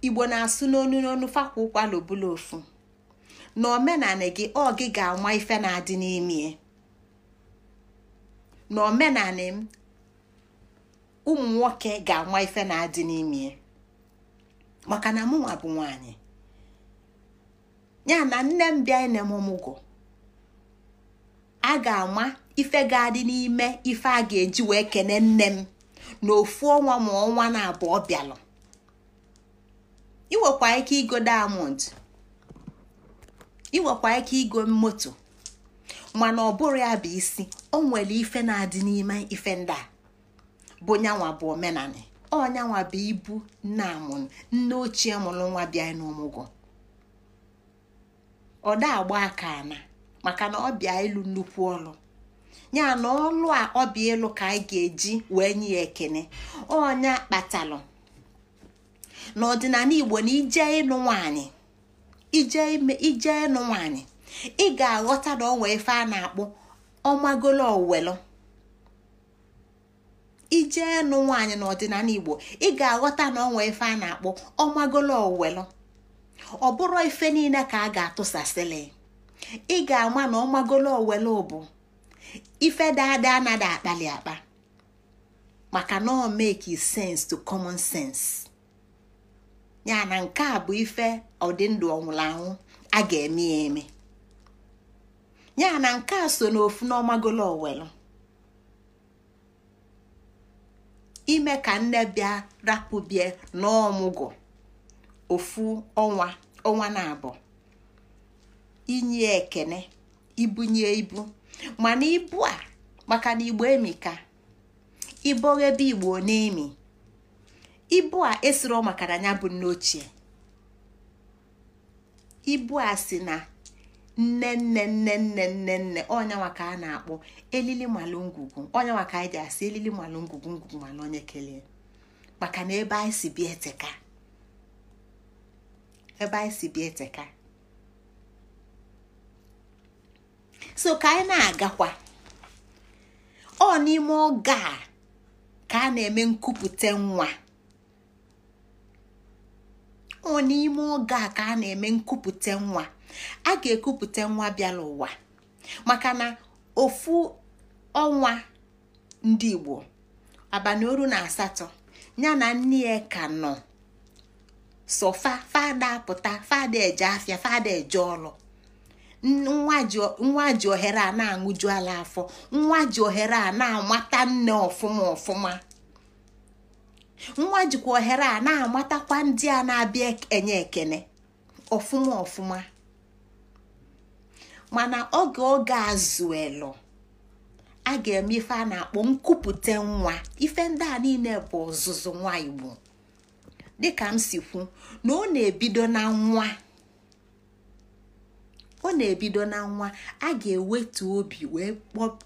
igbo na-asụ n'onu n'onu fakwa ụkwala obula ofu na omenala gị ọ gị ga-anwa ife na-adị n'ime na omenala m ụmụ nwoke ga-anwa ife na-adị n'ime maka na mụnwa bụ nwanyị ya na nne m bịa ine m ọmụgwọ a ga-ama ife ga-adị n'ime ife a ga-eji wee kene nne m na ofu ọnwa ma ọnwa na abụọ bịalụ inwekwa ike igo diamond inwekwa ike igo moto mana ọ bụrụ ya bụ isi o nwere ife na-adị n'ime ife ndị a bụ nyanwa bụ omenani ọnyanwa bụ ibu nne amụrụ nne ochie mụrụ nwa bịa n'ọmụgwọ ọ da agba aka ana maka na ọ bịa ịlụ nnukwu ọrụ ya na ọlụ a ọ bụ elu ka anyị ga-eji wee nye ya ekene ọnya kpatalụ n'ọdịnala igbo na ije ịnụ nwanyị ije ime ije ịnụ nwanyị ị ga-aghọta na ọnwa ife a na-akpọ ọmagolo owelu ije ịnụ nwaanyị n'ọdịnala igbo ị ga-aghọta na ọnwa ife a na akpụ ọmagolo owelu ọ bụrụ ife niile ka a ga-atụsasịlị ị ga-ama na ọmagolo owelu bụ ife dada anaghị akpali akpa maka na ọ make sense to common sense ya na nke a bụ ife ọdịndụ ọnwụrụ anwụ a ga-eme ya eme ya na nke a so n'ofu n'ọmagolo owelu ime ka nne bịa rapụbie n'ọmụgwọ ofu ọnwa ọnwa na abụọ inye ekene ibunye ibu mana ibu a maka na igbo emika ibo ebe igbo na-emi ibu a esiro maka na ya bụ nne ochie ibu a si na nne nne nne nne nne nne ka a na-akpọ elili malụ ngwugwu ọnyanwa ka anyị ji asị elili malụ ngwugwu ngwugwu malụ onye kelee maka na ebe anyị ebe anyị si bịa eteka so ka anyị na-agakwa ọ n'ime oge a ka a na-eme nkupute nwa ọ n'ime oge a ka a na-eme nkupute nwa a ga-ekupute nwa bịara ụwa maka na ofu ọnwa ndị Igbo abalị oru na asatọ ya na nne ya ka nọ sọfa fada pụta fada eje afịa fada eje ọrụ nwa ji ohere a na-aṅụju ala afọ nwa ji ohere a na-amata nne ọfụma ọfụma nwa jikwa ohere a na-amatakwa ndị a na-abịa e-, enye ekene ọfụma ọfụma mana oge oge azụelu a ga-eme ife a na-akpọ nkupute nwa ife ndị a niile bụ ọzụzụ nwa igbo dịka m si kwu na ọ na-ebido na nwa ọ na-ebido na nwa a ga-ewetu obi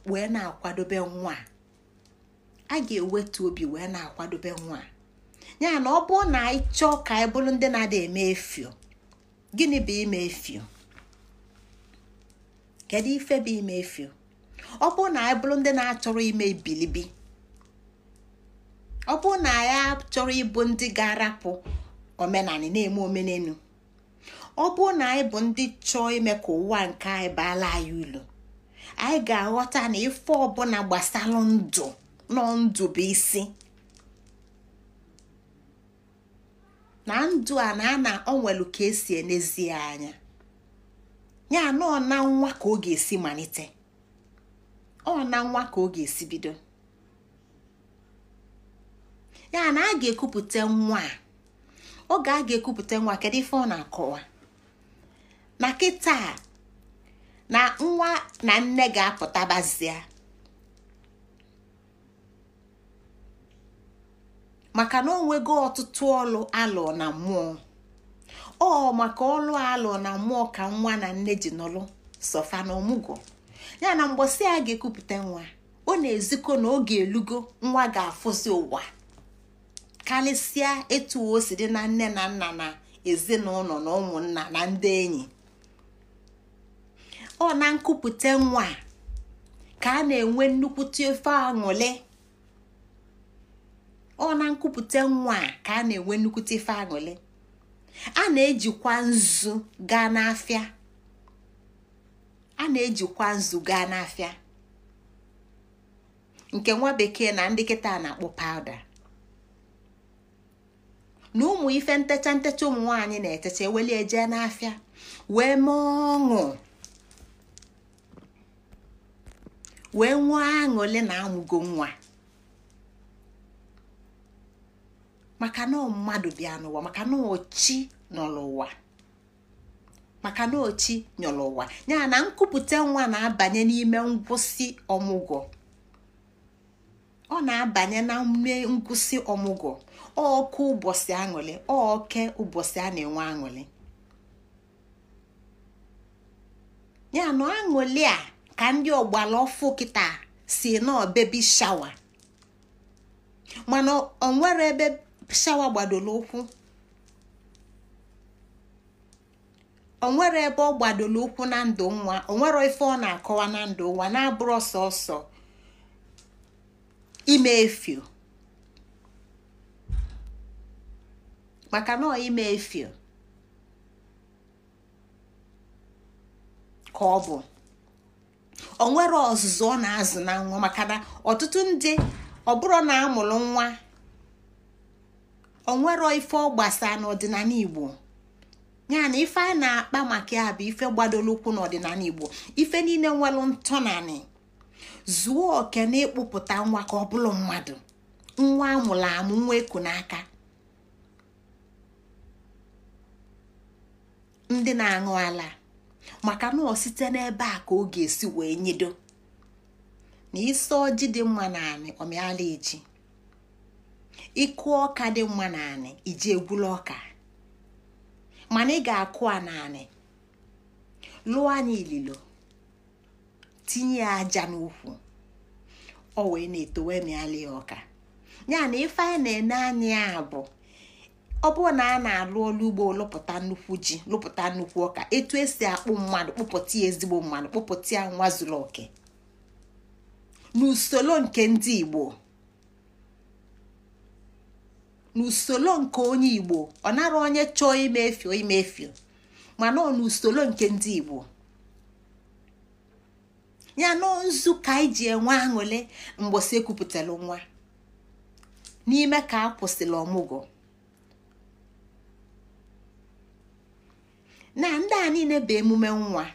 wee na-akwadobe nwa a ga-ewetu obi wee na-akwadobe nwa ya na ọ bụrụ na anyị chọọ ka anyị bụrụ ndị na-ada eme efio gịnị bụ ime efio kedu ife bụ ime efio ọ bụrụ na anyị bụrụ ndị na-achọrọ ime bi? ọ bụrụ na anyị achọrọ ịbụ ndị ga-arapụ omenanị na-eme omenelu ọ bụrụ na anyị bụ ndị chọọ ime ka ụwa nke anyị baala anyị ulu anyị ga-aghọta na ife ọbụla gbasara ndụ na ndụ bụ isi na ndụ a na ana onwelu ka esi enezie anya ya nọọ na nwa ka ọ ga-esi malite ọ na nwa ka ọ ga-esi bido ya na a ga-ekupụta nwa a oge a ga-ekupụta nwa kedu ife ọ na-akọwa na kịta na nwa na nne ga-apụtabazie maka na ọ nwego ọtụtụ ọlụ alụ na mmụọ ọ maka ọlụ alụ na mmụọ ka nwa na nne ji nọlụ sọfa na ọmụgwọ ya na mgbọsị a ga-ekupụta nwa ọ na-ezikọ na oge elugo nwa ga-afụzi ụwa karịsịa etu o si na nne na nna na ezinụlọ na ụmụnna na ndị enyi ọ na nkupute nwa ka a na-enwe nnukwute ofe ọ a na ife a na-ejikwa nzu gaa n'afịa a na-ejikwa nzu gaa n'afịa nke nwa bekee na ndị kịta na-akpọ pawuda na ụmụ ife ntecha ntecha ụmụ nwaanyị na-etecha eweli eje n'afịa wee mee ọṅụ wee nwee aṅụle na amụgo nwa maka na mmadụ bịa n'ụwa maka na ochi n'ụwa ụwa maka na ochi nyọrọ ụwa ya na nkwupụta nwa na-abanye n'ime ngwụsị ọmụgwọ ọ na-abanye na mme ngwụsị ọmụgwọ ọkụ ụbọchị aṅụrị oke ụbọchị a na-enwe aṅụrị ya na aṅụrị a ka ndị ọgbara ọfụ kịta si nọọ bebi shawa mana onwere ebe shawa gbadoro ụkwụ onwere ebe ọ gbadoro ụkwụ na ndụ nwa onwere ife ọ na-akọwa na ndụ nwa na-abụrụ ọsọ ọsọ ime efio maka na ime efio ka ọ bụ o nwere ọzụzụ ọ na-azụ na nwa maka na ọtụtụ ndị ọ bụrụ na amụrụ nwa o ife ọ gbasaa n'ọdịnala igbo ya na ife a na-akpa maka ya bụ ife gbadoro ụkwụ n'ọdịnala igbo ife niile nwere ntọnanị zuo oke na ịkpụpụta nwa ka ọ bụrụ mmadụ nwa amụrụ amụ nwa eku n'aka ndị na-aṅụ ala maka na ọ site n'ebe a ka ọ ga-esi wee nyedo na isi ọjị dị mma naanị omeala eji ịkụ ọka dị mma naanị iji egwula ọka mana ị ga-akụ a naanị lụọ anya ililo tinye ya aja n'ukwu ọ wee na-etowe mịala ya ọka ya na ife anyị na-ene anya ya bụ ọ bụrụ na a na-alụ ọrụ ugbo lụpụta nnukwu ji lụpụta nnukwu ọka etu esi akpụ mmadụ kpụpụta ya ezigbo mmadụ kpụpụta ya nwa zuru oke n'usoro nke ndị igbo n'usoro nke onye igbo ọ nara onye chọọ imefio imefio mana ọ n'usoro nke ndị igbo ya na nzu ka anyị ji enwe aṅụle mgbọsi ekwupụtara nwa n'ime ka a kwụsịrị ọmụgwọ na ndị a niile bụ emume nwa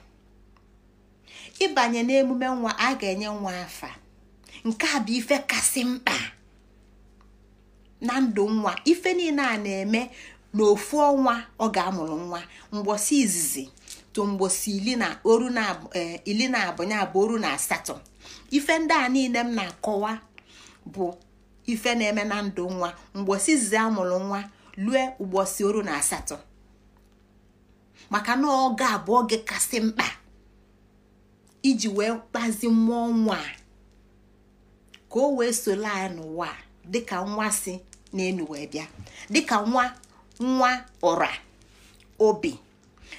ịbanye n'emume nwa a ga-enye nwa afa nke a bụ ife kasị mkpa na ndụ nwa ife niile a na-eme n'ofu ọnwa ọ ga-amụrụ nwa mgbosi izizi to mgbọsị ili na e, abụ ya na asatọ ife ndị a niile m na-akọwa bụ ife na-eme na ndụ nwa mgbosi izizi amụrụ nwa lue ụgbọsị oru na asatọ maka na oge a oge kasị mkpa iji wee kpazi mmụọ nwa ka o wee solo anyị n'ụwa dịka nwa si na wee bịa dịka nwa nwa ọra obi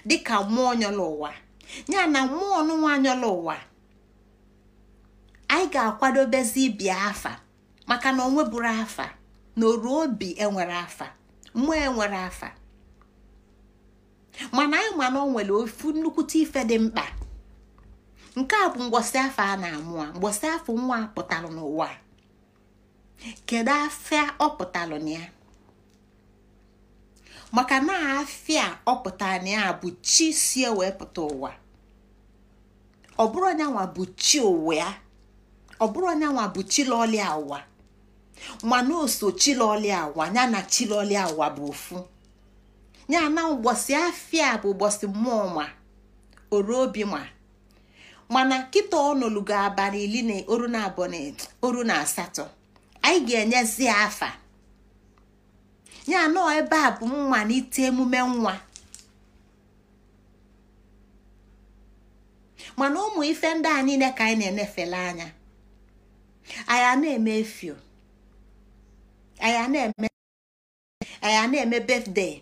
dịka mmụọ nyọla ụwa ya na mmụọ nwa nyọla ụwa anyị ga-akwadobezi ibi afa maka na onweburu afa na oru obi enwere afa mmụọ enwere afa mana anyị mana o nwere ofu nnukwute ife dị mkpa nke a bụ ngwọsị afọ a na-amụ a ngwọsị afọ nwa a pụtalụ n'ụwa kedu afịa ọ pụtara na ya maka na afịa ọ pụtara na ya bụ chi si e wee pụta ụwa ọ bụrụ anyanwa bụ chi ụwa ya ọ bụrụ anyanwa bụ chilọlia ụwa mana oso chilọlia ụwa ya na chilọlia ụwa bụ ofu ya ụbọchị ụgbọsị afịa bụ ụbọchị mmụọ ma oru obi ma mana kịta ọnụlugo abalị iri na oru na abụọ na oru na asatọ anyị ga-enyezi afa nye anọ ebe a bụ nwa mmalite emume nwa mana ụmụ ife ndị a niile ka anyị na-enefele anya anyị na-eme efio anyị na-eme anyị na-eme birthday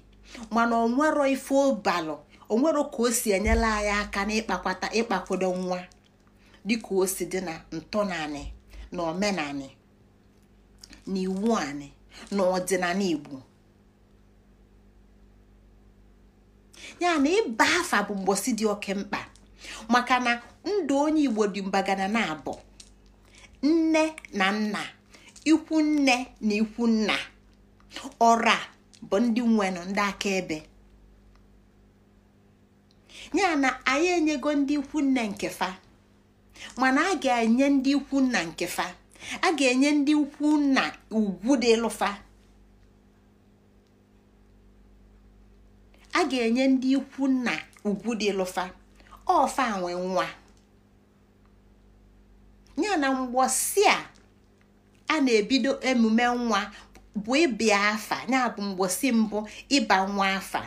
mana onwero ife ọbalụ onwero ka o si enyela anyị aka n'ịkpakwata ịkpakwado nwa dịka o si dị na ntọnanị na omenanị na iwu anị na ọdịnala Igbo ya na ịba afa bụ mgbosi dị oke mkpa maka na ndụ onye Igbo dị mbagana na abụ nne na nna ikwu nne na ikwu nna ọra bụ ndị nwenụ ndị akaebe ya na anyị enyego ndị ikwu nne nke mana a ga-enye ndị ikwu nna nke fa a ga-enye ndị ikwu nna ugwu dị lụfa a ga-enye ndị ikwu ugwu dị lụfa ọfa nwa ya na mgbọsi a a na-ebido emume nwa bụ ịbịa afa na-abụ mgbosi mbụ ịba nwa afa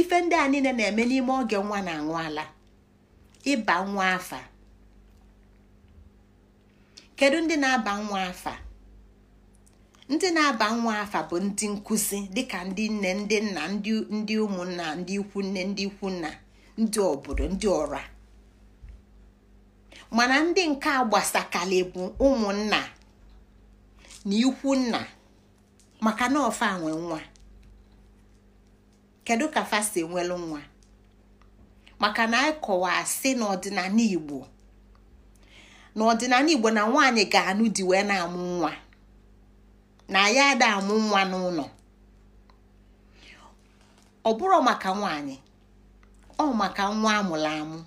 ife ndị a niile na-eme n'ime oge nwa na-aṅụ ala ịba nwa afa kedu ndị na-aba nwa afa ndị na-aba nwa afa bụ ndị nkụzi dịka ndị nne ndị nna ndị ụmụnna ndị ikwu nne ndị ikwu nna ndị obodo ndị ọra mana ndị nke agbasakali bụ ụmụnna na ikwu nna maka na ofe nwe nwa kedu ka fasi nwelu nwa maka na anyị kọwa asị n'ọdịnala igbo n'ọdịnala igbo na nwaanyị ga-anụ di wee na-amụ nwa na ya ada amụ nwa n'ụlọ ọ bụrụ maka nwaanyị ọ maka nwa amụrụ amụ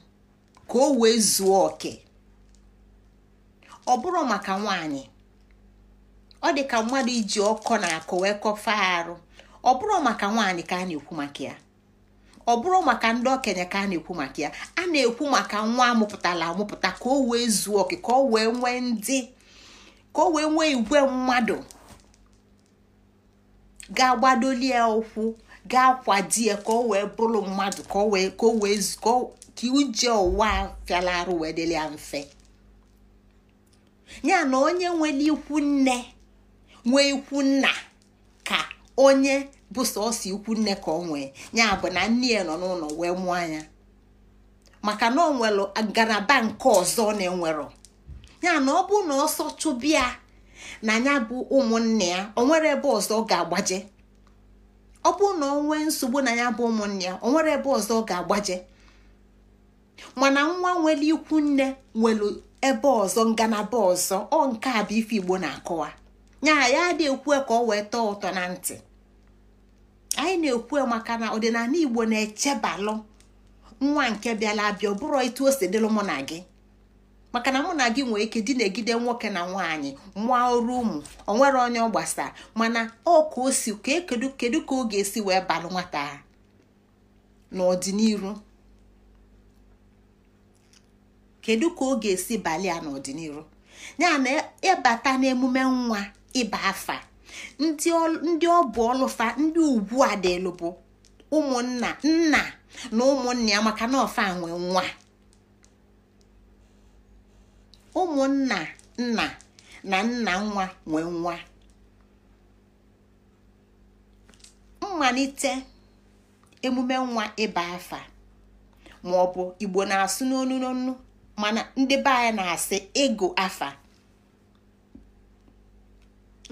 ka o wee zuo oke ọ bụrụ maka nwaanyị ọ dị ka mmadụ iji ọkọ na akụ wee kọfa arụ ọ bụrụ maka nwaanyị ka a na-ekwu maka ya ọ bụrụ maka ndị okenye ka a na-ekwu maka ya a na-ekwu maka nwa amụpụtala amụpụta ka o wee zuo oke ka o wee nwee ndị ka o wee nwee igwe mmadụ ga-agbadoli ya ụkwụ ga kwadi ya ka o wee bụrụ mmadụ ka o wee ka uje ụwa fịala arụ wee dịla ya mfe ya na onye nwere ikwu nne nwee ikwu nna ka onye bụ sọsọ ikwu nne ka ọ nwee ya bụ na nne ya nọ n'ụlọ wee mụọ anya maka na ọ nwere ngalaba nke ọzọ na-enwero ya na ọ bụ na ọsọ chụbịa na ya bụ ụmụnne ya o nwere ebe ọzọ ọ ga-agbaje ọ bụ na ọ nwee nsogbu na ya bụ ụmụnne ya o nwere ebe ọzọ ọ ga-agbaje mana nwa nwere ikwu nne nwere ebe ọzọ ngalaba ọzọ ọ nke a bụ ife Igbo na-akọwa nya ya adị ekwe ka ọ wee tọọ ụtọ na ntị anyị na-ekwe maka na ọdịnala igbo na-echebalụ nwa nke bịala abịa ọ bụrụ etu o si dịlụ mụ na gị maka na mụ na gị nwee ike dị na-egide nwoke na nwaanyị mụọ ọrụ ụmụ o nwere onye ọ gbasara mana ọ ka o si e kee kedu ka ọ ga-esi wee balụ nwata ha n'ọdịnihu kedu ka ọ ga-esi balịa ya n'ọdịnihu ya na ịbata n'emume nwa ịba afa ndị ọ bụ ọlụfa ndị ugwu a bụ ụmụnna nna na ụmụ ya maka na ọfa nwe nwa ụmụnna nna na nna nwa nwee nwa mmalite emume nwa ịba afa maọbụ igbo na-asụ n'onu n'onu mana ndị be anyị na-asị ịgụ afa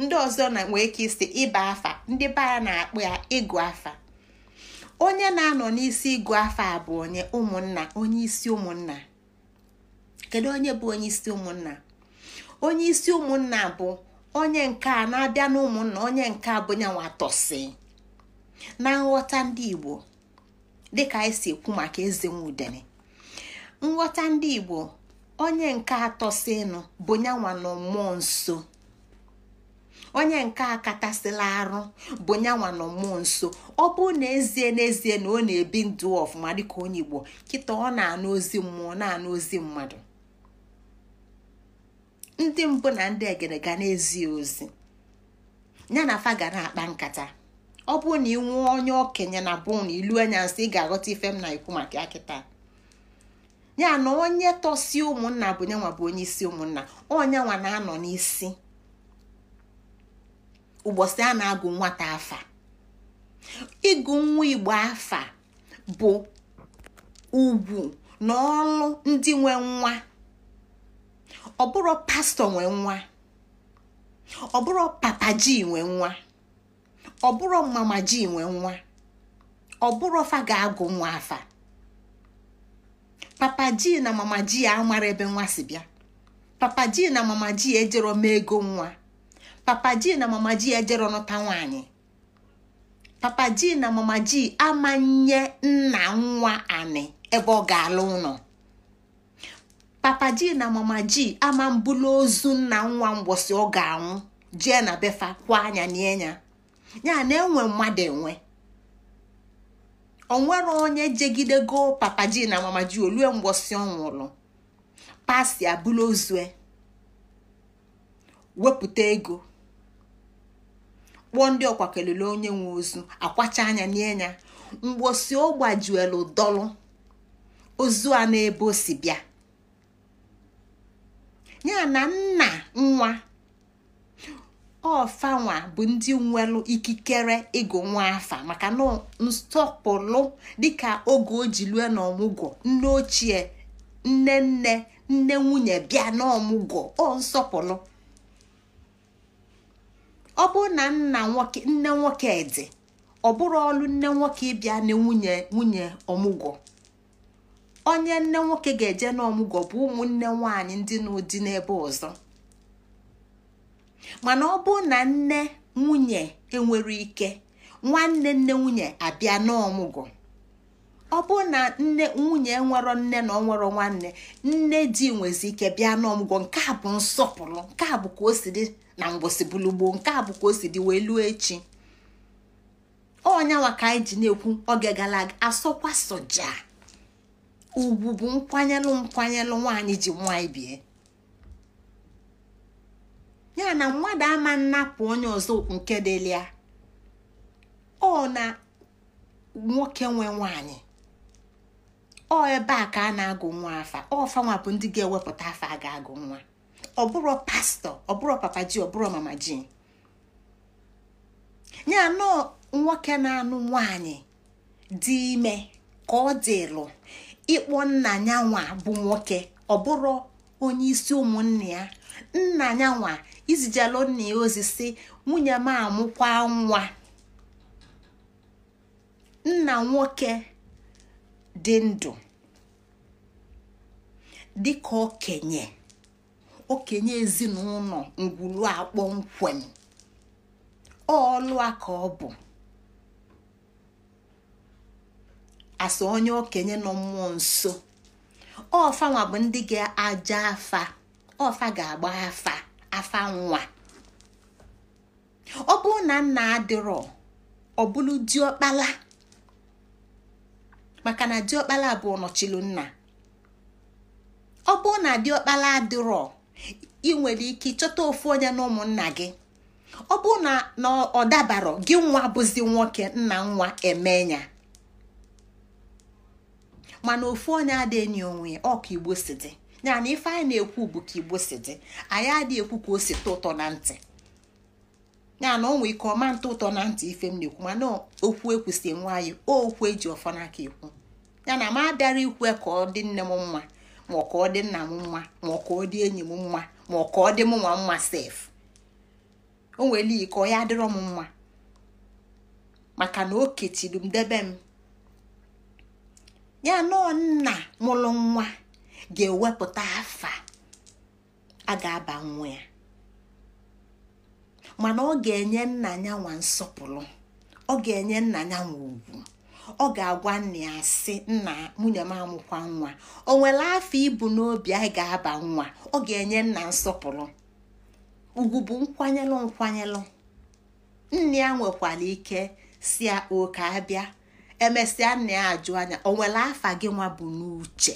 ndị ọzọ na nwee ike isi ịba afa ndị be ya na-akpụ ya ịgụ afa onye na-anọ n'isi ịgụ afa bụ onye ụmụnna onye isi ụmụnna kedu onye bụ onye isi ụmụnna onye isi ụmụnna bụ onye nke a na-abịa n'ụmụnna onye nke a bụ nyanwa na nghọta ndị igbo dịka anyị si ekwu maka eze nwudere nghọta ndị igbo onye nke atọsịnụ bụ nyanwa na mmụọ nso onye nke a katasịla arụ bụ nyanwa nọ mmụọ nso ọ bụrụ na ezie n'ezie na ọ na-ebi ndụ ọfụma dịka onye igbo kịta ọ na-anụ ozi mmụọ na-anụ ozi mmadụ ndị mbụ na ndị egere ga na ozi ya na afa ga na-akpa nkata ọ bụrụ na ị nwụọ onye okenye na bụ na ilu anya nsị ị ga-aghọta ife m na ikwu maka ya kịta ya na onye tọsi ụmụnna bụ nyanwa bụ onye isi ụmụnna onyenwa na-anọ n'isi ụbọchị a na-agụ nwata afa ịgụ nwa igbo afa bụ ugwu na ọrụ ndị nwe nwa ọ bụrụ pastọ nwe nwa ọ bụrụ papa ji nwe nwa ọ bụrụ mama ji nwe nwa ọ bụrụ fa ga-agụ nwa afa papa ji na mama ji amara ebe nwa si bịa papa ji na mama ji ejero m ego nwa papa ji na mama ji ejere nụta nwaanyị papa ji na mama ji amanye nna nwa anị ebe ọ ga-alụ ụlọ papa ji na mama ji ama mbụla ozu nna nwa mgbọsị ọ ga-anwụ jee na befa kwa anya n'enya ya na enwe mmadụ enwe onwere onye jegidego papa ji na mama ji olue mgbọsị ọ pasi abụla ozue wepụta ego ụgwọ ndị ọkwa kelele onye nwe ozu akwacha anya nye ya mgbosi ọ gbajuelu dọlụ ozu a n'ebe o si bịa ya na nna nwa ọfanwa bụ ndị nwelụ ikikere ịgụ nwa afa maka na nsọpụrụ dịka oge o ji na n'ọmụgwọ nne ochie nne nne nne nwunye bịa n'ọmụgwọ ọ nsọpụrụ ọ bụrụ na nne nwoke dị ọ bụrụ ọlụ nne nwoke ịbịa na nwunye nwunye ọmụgwọ onye nne nwoke ga-eje n'ọmụgwọ bụ ụmụnne nwanyị ndị n'ụdị n'ebe ọzọ mana ọ bụrụ na nne nwunye enwere ike nwanne nne nwunye abịa n'ọmụgwọ ọ bụ na nne nwunye nwero nne na onwero nwanne nne di nwezi ike bịa n'ọmụgwọ nke a bụ nsọpụrụ nke a bụ ka o si dị na mgbọsị bulugboo nke a bụ ka o si dị wee luo echi ọnyanwa ka anyị ji na-ekwu oge gara aga asọkwa soja ugwu bụ nkwanyelụ nkwanyelụ nwaanyị ji nwanyị bie ya na mmadụ ama nnapụ onye ọzọ nke dịlia ọ na nwoke nwe nwaanyị ọ ebe a ka a na-agụ nwa afa ọfanwa bụ ndị ga-ewepụta afa a ga-agụ nwa ọ bụrụ pastọ ọ bụrụ papa ji ọ bụrụ mama ji Nye nọọ nwoke na-anụ nwanyị dị ime ka ọ dịlụ ịkpọ nna ya nwa bụ nwoke ọ bụrụ onye isi ụmụnne ya nna ya nwa izijelu nna ya ozi si nwunye m amụkwa nwa nna nwoke dị ndụ dịka okenye okenye ezinụlọ ngwulu akpọmkwem ọ ka ọ bụ asa onye okenye nọ mmụọ nso ọfanwa bụ ndị ga-aja afa ọfa ga-agba afa afa nwa ọ bụrụ na nna adịrọ ọ bụrụ diọkpala maka na diọkpala bụ nọchilu nna ọ bụrụ na diọkpala adịrọ ị nwere ike ịchọta ofu onye na ụmụnna gị ọ bụrụ na ọ dabarọ gị nwa bụzi nwoke nna nwa emenya mana ofu onye adịghị enyi onwe ya ọ ka igbo si dị ya na ife anyị na-ekwu bụ ka igbo si dị anyị adịghị ekwu ka o si tụ ụtọ na ntị ya na ọ ike ọma ntụ ụtọ na ntị ife m na-ekwu mana okwu ekwusi nwe anyị okwu eji ọfọ n'aka ekwu ya na m abịara ikwe ka ọ dị nne m mma ma ọ ka ọ dị nna m mma ma ọ ka ọ dị enyi m mma ma ọ ka ọ dị m nwa mma sef o nwere ike ọ ya adịrọ m mma maka na o ketiri m debe m ya na nna mụlụ nwa ga-ewepụta afa a ga-aba nwa ya mana ọ ga-enye nna ya nwa nsọpụrụ ọ ga-enye nna ya nwa ugwu ọ ga-agwa nna ya sị nna nwunye m amụkwa nwa o nwere afọ ibu n'obi anyị ga-aba nwa ọ ga-enye nna nsọpụrụ ugwu bụ nkwanyelụ nkwanyelụ nne ya nwekwara ike si ya oke abịa emesịa nna ya ajụ anya o nwere afa gị nwa bụ n'uche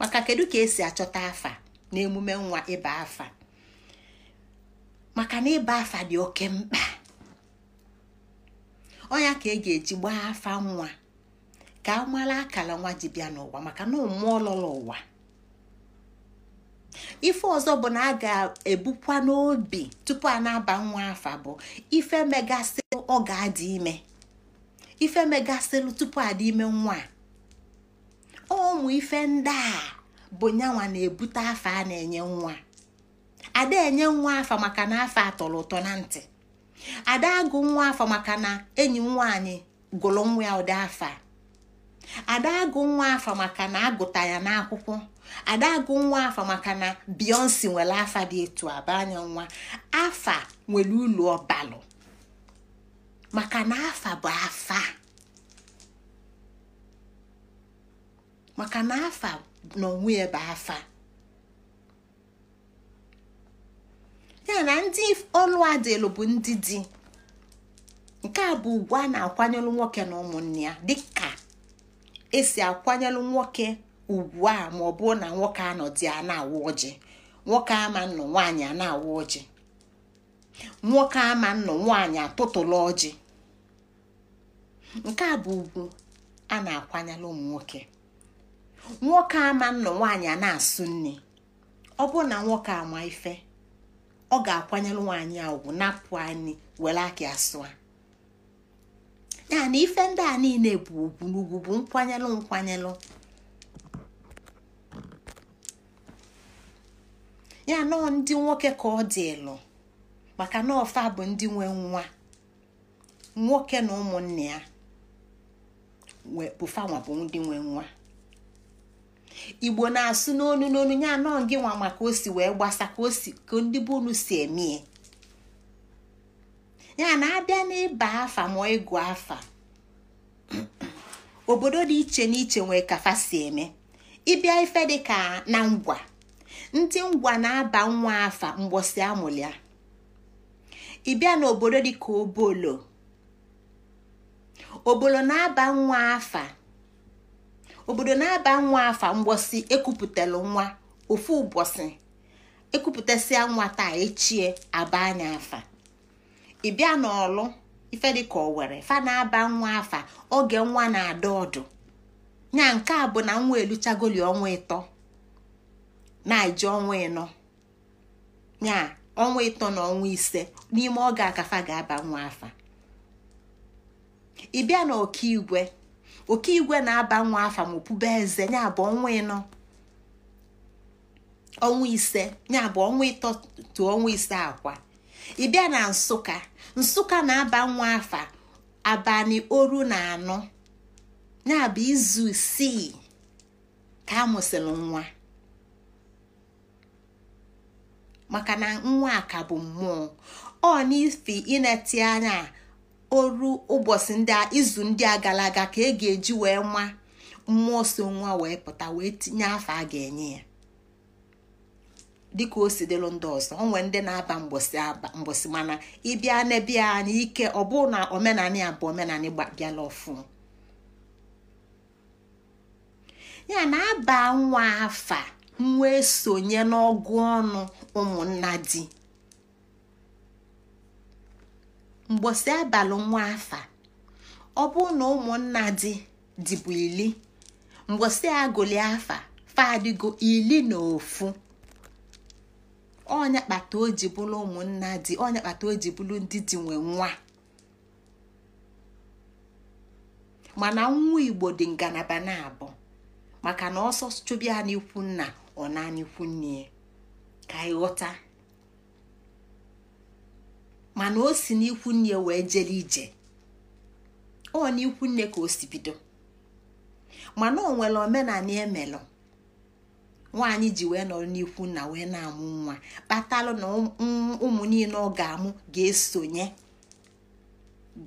maka kedu ka esi achọta afa na emume nwa ịba afa maka na ịba afa dị oke mkpa onya ka e ga-eji gbaa afa nwa ka a mara akara nwa ji bịa n'ụwa maka na mmụọ lọrọ ụwa ife ọzọ bụ na a ga-ebukwa n'obi tupu a na-aba nwa afa bụ ife megasịlụ ọ ga-adị ime ife megasịlụ tupu adị ime nwa ụmụ ife ndị a bụ nyanwa na-ebute afa a na-enye nwa ada enye nwa afa maka na afa atọrọ ụtọ na ntị ada agụ nwa afọ maka na enyi m gụrụ nwa ya ụdị afọ ada agụ nwa afọ maka na agụta ya n'akwụkwọ ada agụ nwa afọ maka na biyonsi nwere afa dị etu aba anya nwa afa nwere ụlọ ọbalụ maka na afa bụ afa maka na afa n'onwe ya bụ afa ya na ndị ọnụ adịlụ bụ ndị di nke a bụ ugwu a na-akwanyelụ nwoke na ụmụnne ya dịka esi akwanyelụ nwoke ugwu a ma ọ bụrụ na nwoke anọdụ ya na-awụ ọjị nwoke ama nnụ nwaanyị a na-awụ ọjị nwoke ama nnụ nwaanyị atụtụla ọjị nke a bụ ugwu a na-akwanyelụ ụmụ nwoke nwoke ama nnụ nwaanyị a na-asụ nne ọ bụrụ na nwoke ama ife ọ ga-akwanyere nwaanyị a ugwu napụ anyị were aka asụa. sụa ya na ife ndị a niile bụ ugwu n'ugwu bụ nkwanyelụ nkwanyelụ ya nọọ ndị nwoke ka ọ dị ịlụ maka na ọfa bụ ndị nwe nwa nwoke na ụmụnne ya bụfanwa bụ ndị nwe nwa igbo na-asụ n'onu n'onu ya anọ gị nwa maka o si wee gbasa ka ka ndị bụ unu si emee. ya na-abịa n'ịba afa ma ịgụ afa obodo dị iche n'iche nwee kafa si eme ịbịa ife dị ka na ngwa ndị ngwa na-aba nwa afa mgbọsị amụlịa ịbịa n'obodo dị ka obolo obolo na-aba nwa afa obodo na-aba nwa afa mgbosi ekupụtalụ nwa ofu ụbọchị ekupụtasịa nwa taa echie aba anya afa ịbịa n'ọlụ ife owere fa na-aba nwa afa oge nwa na-ada ọdụ nya nke a bụ na nwa eluchagoli ọnwa ịtọ na-eji ọnwa ịnọ nya ọnwa ịtọ na ọnwa ise n'ime oge akafa ga-aba nwa afa ịbịa igwe oke igwe na-aba nwa afa ma opube eze ya bụ ọnwa ịnọ ọnwa ise ya bụ ọnwa ịtọ tụ ọnwa ise akwa ị na nsụka nsụka na-aba nwa afa abalị oru na anọ ya bụ izu isii ka amụsịrị nwa maka na nwa a ka bụ mmụọ ọ n'ifi ineti anya oru ụbọchị ndị a izu ndị a gara aga ka e ga-eji wee nwa mmụọ so nwa wee pụta wee tinye afọ a ga-enye ya dịka o si dịlụ ndị ọzọ onwe ndị na-aba mgbọsị mana ịbịa n'ebia anya ike ọ bụ na omenanị a bụ omenanị bịala ọfụ ya na aba nwa afa nwa esonye n'ọgụ ọnụ ụmụnna di mgbosi abalị nwa afa ọ bụ na ụmụnna dị dịbụ ili mgbọsị agụli afa fadịgo ili na ofu ọnya kpata o ji bụrụ ụmụnna dị ọnya kpata o ji bụrụ ndị dị nwe nwa mana nwa igbo dị ngalaba na-abụ maka na ọsọ chụbịa n'ikwu nna ọ na n'ikwu nne ka anyị ghọta mana o si n'ikwu nne wee jere ije ọ n'ikwu nne ka osibido mana o nwere omenala emelụ nwaanyị ji wee nọrọ n'ikwu nna wee na-amụ nwa kpatalụ na ụmụ niile ọ ga-amụ ga-esonye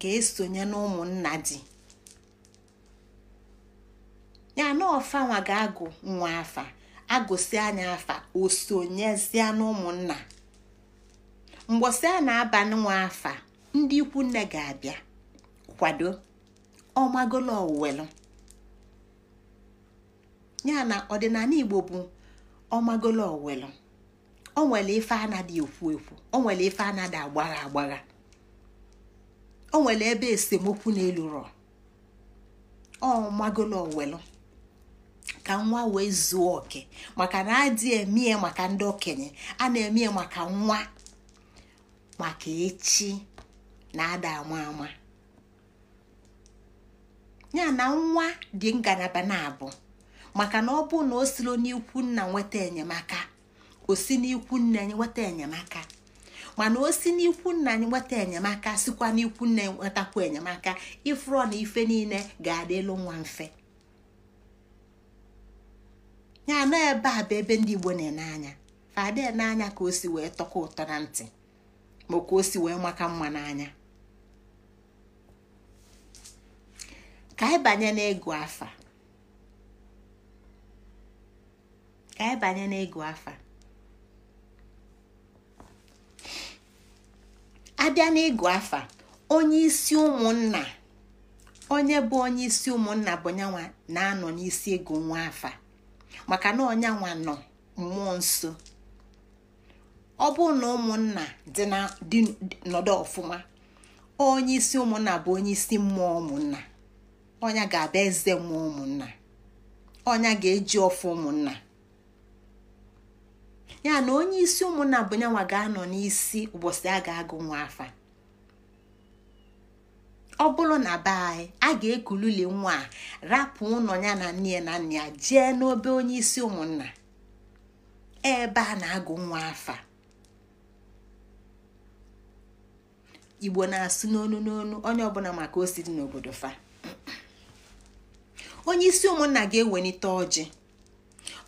ga-esonye na ụmụnna di ya na ọfanwa ga-agụ nwa afa agụsi anya afa osonye sonyezie na mgbọsị a na-aba nwa afa ndị ikwu nne ga-abịa kwado ọmagolo owelu ya na ọdịnala igbo bụ ọmagolo owelu o nwere ife anadị ekwu ekwu o nwere ife anadị agbagha agbagha o nwere ebe esemokwu n'elu rọ ọmagolo owelu ka nwa wee zuo oke maka na adị emie maka ndị okenye a na-emie maka nwa maka echi na-ada ama ama ya na nwa dị ngalaba na-abụ maka na ọ bụ na o siro n'ikwu nna nweta enyemaka o n'ikwu nna nweta enyemaka mana o si n'ikwu nna anyị nweta enyemaka sikwa n'ikwu nna nwetakwu enyemaka ifuru na ife niile ga adịlụ elu nwa mfe ya na ebe a bụ ebe ndị Igbo na-ene anya fada n'anya ka o si wee tọkọ ụtọ na ntị ma ka o si wee maka mma n'anya ka anyị banye n'ịgụ afa ka afa abịa n'ịgụ afa onye isi ụmụnna onye bụ onye isi ụmụnna bụ nyanwa na-anọ n'isi ịgụ nwa afa maka na ọnyanwa nọ mmụọ nso ọ bụrụ na ụmụnna dị nọdụ ọfụma onye isi ụmụnna bụ onye isi mmụọ ụmụnna ọnya ga-abịa eze mmụọ ụmụnna ọnya ga-eji ọfụ ụmụnna ya na onye isi ụmụnna bụ nyanwa ga-anọ n'isi ụbọchị a ga-agụ nwa afa ọ bụrụ na be anyị a ga-ekululi nwa a rapụ ụlọ ya na nne ya na nna ya jee n'obe onye isi ụmụnna ebe a na-agụ nwa afa igbo na-asụ n'onu n'onu onye ọbụla maka osiri n'obodo fa onye isi ụmụnna ga-ewelite ọjị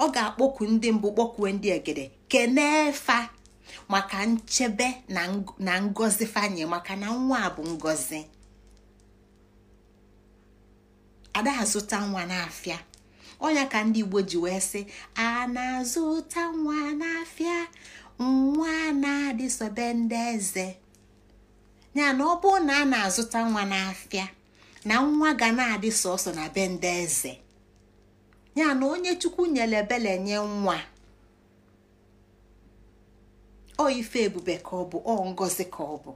ọ ga-akpọku ndị mbụ kpọkuwe ndị egede kenee fa maka nchebe na ngozi fanye maka na nwa bụ ngozi. ada azụta nwa n'afịa ọnya ka ndị igbo ji wee sị a na-azụta nwa n'afịa nwa na-adịsobe ndị eze ya na ọ bụrụ na a na-azụta nwa n'afịa na nwa ga na-adị sọsọ na be ndị eze ya na onye chukwu nyere ebele nye nwa o ife ebube ka ọ bụ ọ ngozi ka ọ bụ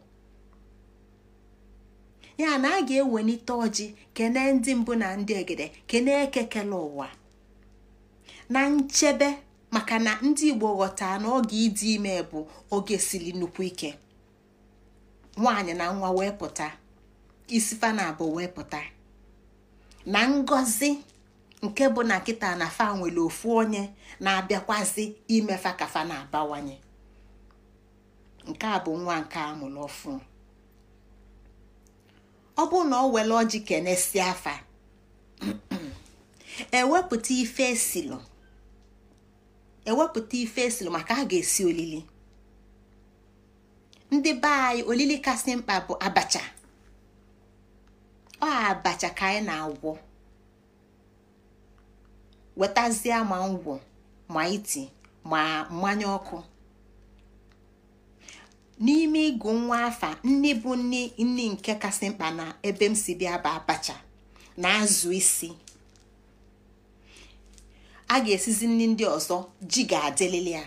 ya na a ga-ewelite ọjị kenee ndị mbụ na ndị egede kene ekekele ụwa na nchebe maka na ndị igbo ghọta na oge ịdị ime bụ oge siri nnukwu ike nwaanyị na nwa wee pụta isi fa na abụ wee pụta na ngozi nke bụ na nkịta na fa nwere ofu onye na-abịakwazi fa ka fa na-abawanye nke a bụ nwa nke a mụrụ ọfụ ọ bụ na ọ were ọjị kenesie afa ewepụta e ife esilụ ewepụta maka a ga-esi olili ndị be anyị olili kasị mkpa bụ abacha ọ abacha ka anyị na-agwọ wetazie ma ngwọ ma iti ma mmanya ọkụ n'ime ịgụ nwa afa nne bụ nne nne nke kasị mkpa na ebe m si bịa bụ abacha na azụ isi a ga-esizi nri ndị ọzọ ji ga-adịlili ya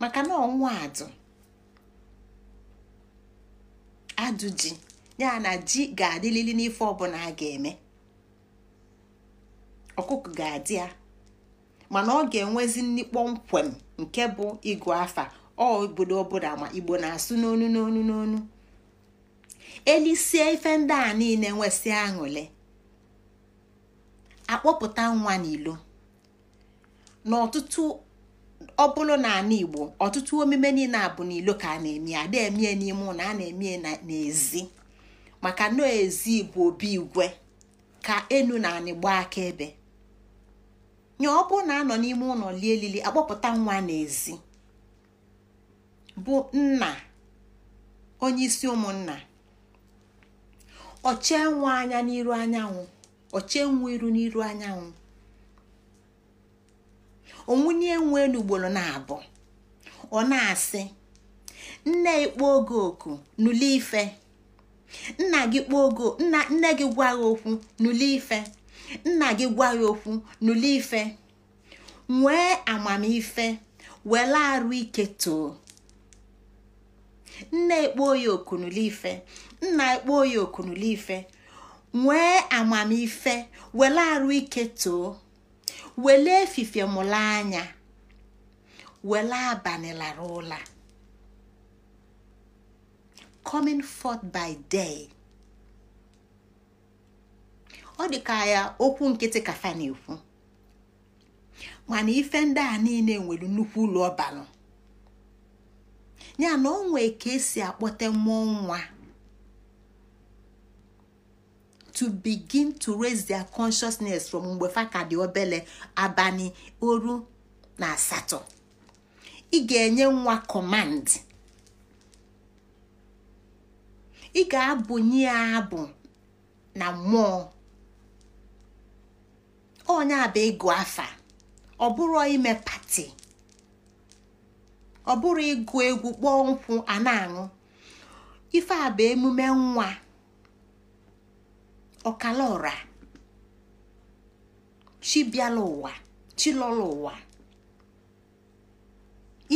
maka na adụ adụ ji ya na ji ga-adịlili n'ife ọbụla a ga-eme ọkụkọ ga-adị ya mana ọ ga-enwezi nni kpọmkwem nke bụ ịgụ afa ọ obodo ọbụla ma igbo na-asụ n'onu n'onu n'onu elisie ife ndị a niile nwesị aṅụle akpọpụta nwa n'ilo n'ọtụtụ ọ bụrụ na ala igbo ọtụtụ omume niile a bụ n'ilo ka a na-eme a na-emie n'ime ụlọ a na-eme n'ezi maka nọọ ezi bụ obi igwe ka enu na anịgba aka ebe nye ọ bụ na anọ n'ime ụlọ lie elili akpọpụta nwa n'ezi bụ nna onye isi ụmụnna ọchie nwa anya n'iru anyanwụ ọchie nwa iru n'iru anyanwụ onwunye nwee elu na-abụ ọ na-asị nne ikpo oge oku nụli ife nna gị kpọọ ogo nne gị gwa ya okwu nụli ife nna gị gwa gị okwu nụli ife nwee amamife were arụ ike too nne ekpo ya oku nụli ife nna ekpo ya oku nụli ife nwee amamife were arụ ike too wele efife mụla anya wele abalị lara ụla coming forth by day ọ dị ka ya okwu nkịtị kafa na-ekwu mana ife ndị a niile nwere nnukwu ụlọ ọbalụ ya na onwe ka esi akpọte mmụọ nwa to begin to raise their consciousness from mgbe fa ka dị obele abalị oru na asatọ ị ga-enye nwa command ị ga-abụnye ya abụ na mmụọ onye abụ ịgụ afa ọ bụrụ ime pati ọ bụrụ ịgụ egwu kpọọ nkwụ a na-aṅụ ife a bụ emume nwa ọkala ọra chi bịala ụwa chi lọla ụwa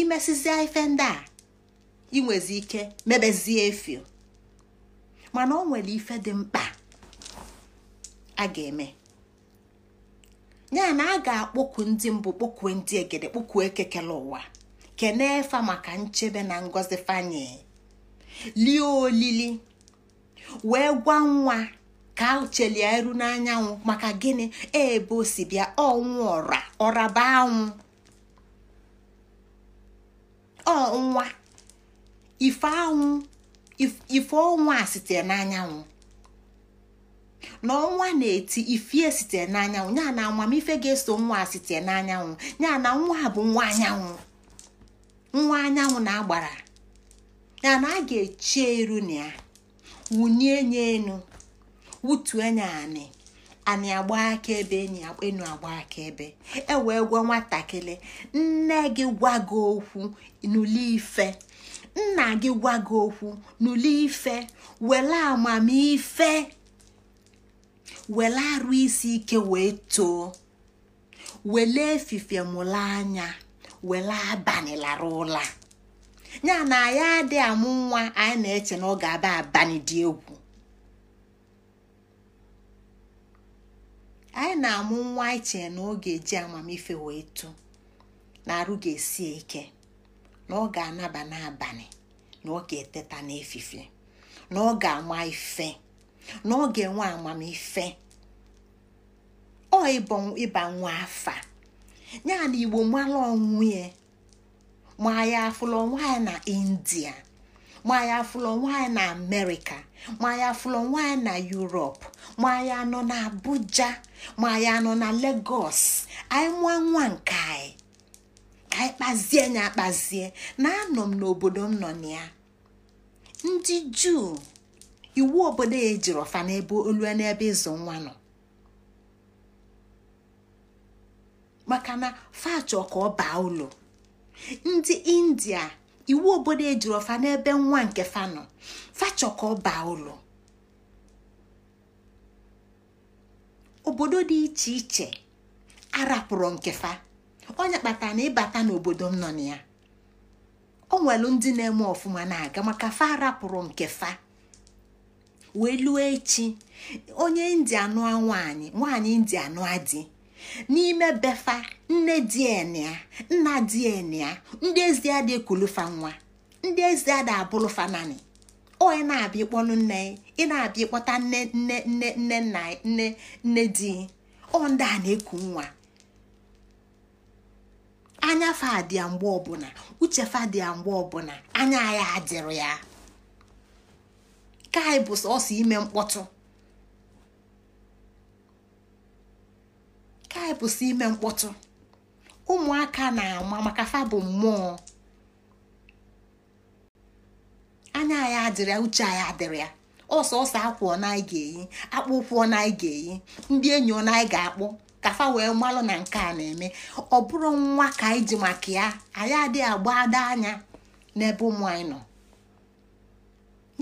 imesizie ife ndị a inwezi ike mebezie efio mana ọ nwere ife dị mkpa a ga-eme ya na a ga-akpọku ndị mbụ kpọkue ndị egede kpọkue ekekele ụwa kenee fa maka nchebe na ngọzi fanye lie olili wee gwa nwa ka chelie eru n'anyanwụ maka gịnị e, ebe o si bịa ọnwụ ọra ọraba anwụ ọnwa ife anwụ ife ọnwa a sitere n'anyanwụ na ọnwa na-eti ifie e sitere n'anyanwụ ya na amamife ga-eso nwa a sitere n'anyanwụ ya na nwa bụ nwa anyanwụ nwa anyanwụ na-agbara ya na a ga-eche eru na ya wụnye nye enu wụtue nya anị anyị agba akaebe enu agba akaebe e wee gwa nwatakịrị nne gị gwa gị okwu n'ụlọ ife nna gị gwa gị okwu n'ụlọ ife were amamife were arụ isi ike wee too were efife anya were abalị lara ụla ya na ya dị amụ nwa anyị na-eche na ọ ga-aba abalị dị egwu anyị na-amụ nwa anyị e na oge ji amamife wee tụ na arụ ga-esi ike na ọ ga-anaba n'abalị na ọ ga-eteta n'efifie na ọ ga-ama ife na ọ ga-enwe amamife ọ ịba nwa afa ya na igbo mara onwe ma ya afụla onwe na india ma ya afụla onwe na amerịka ma ya afụla onwe na yurop ma anyị anọ na abuja ma anyị anọ na legos anyị nwa nwa nke anyị ka anyị kpazie nya akpazie na anọ m n'obodo m nọ na ya ndị juu iwu obodo ya ejiri ọfa n'ebe olue n'ebe ịzụ nwa nọ maka na fachọ ka ọ baa ụlọ ndị india iwu obodo ejiri ọfa n'ebe nwa nke fa nọ fachọ ka ọ baa ụlọ obodo dị iche iche arapụrụ nkefa onye kpatara na ịbata n'obodo m nọ na ya o nwelu ndị na-eme ọfụma na-aga maka fa arapụrụ nkefa wee lụọ echi onye india nụa nwaanyị nwaanyị india nụa n'ime befa nne di e nna di e ndị ezi adị ekulufa nwa ndị ezi adị onye na-abịa ịkpọnụ nne ị na-abịa ịkpọta nne nne nne nne nna nne nne di ọ ndị a na-eku nwa anya fadịa mgbe ọbụla uche fadịa mgbe ọbụla anya ya adịrị ya ka anyị bụ sọsọ ime mkpọtụ ka bụ sọ ime mkpọtụ ụmụaka na-ama maka fa bụ mmụọ anya anyị adịrị uche anyị adịrị ya ọsọ ọsọ akwụ ọ na anyị ga-eyi akpụ ụkwụ ọ na anyị ga-eyi ndị enyi ọ na anyị ga-akpụ kafa wee mmalụ na nke a na-eme ọ bụrụ nwa ka anyị ji maka ya anyị adịghị agba ada anya n'ebe ụmụ anyị nọ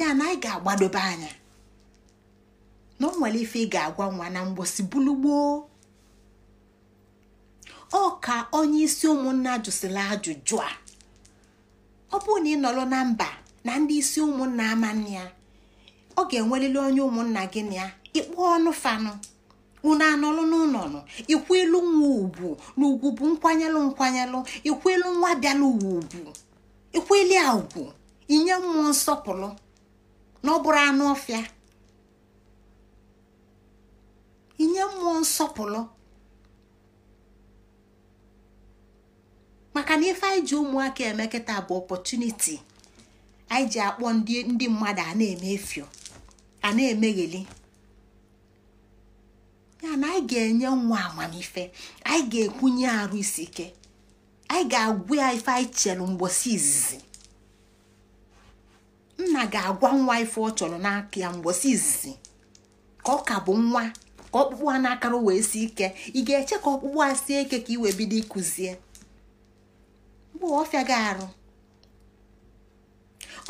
ya na anyị ga-agbadobe anya na ọ nwere ife ị ga-agwa nwa na mgbosi gboo ọ ka onye isi ụmụnna jụsịrị ajụjụ a ọ bụrụ na ị nọrọ na mba na ndị isi ụmụnna amanne ya ọ ga-enwerịrị onye ụmụnna gị na ya ịkpọ ọnụ fanụ unu anọlụ n'ụlọnụ ilu nwa ugwu na ugwu bụ nkwanyelụ nkwanyelụ ikwelu nwa bịala uwe ugwu ikweli a ugwu inye mmụọ nsọpụrụ na ọ bụrụ anụ ọfịa inye mmụọ nsọpụrụ maka na ife anyị ji ụmụaka eme kịta bụ ọpọtuniti anyị ji akpọ ndị mmadụ a na-eme efio a na-emegheli ya na anyị ga-enye nwa amamife anyị ga-ekwunye arụ isi ike anyị ga-agwụ ya ife anyị chelụ mgbosi izizi nna ga-agwa nwa ife ọ chọrọ n'aka ya mgbosi izizi ka ọ ka bụ nwa ka ọkpụkpụ a na-akara wee si ike ị ga-eche ka ọkpụkpụ a sie ike ka i wee bido ịkụzie mgbe ọfịa ga-arụ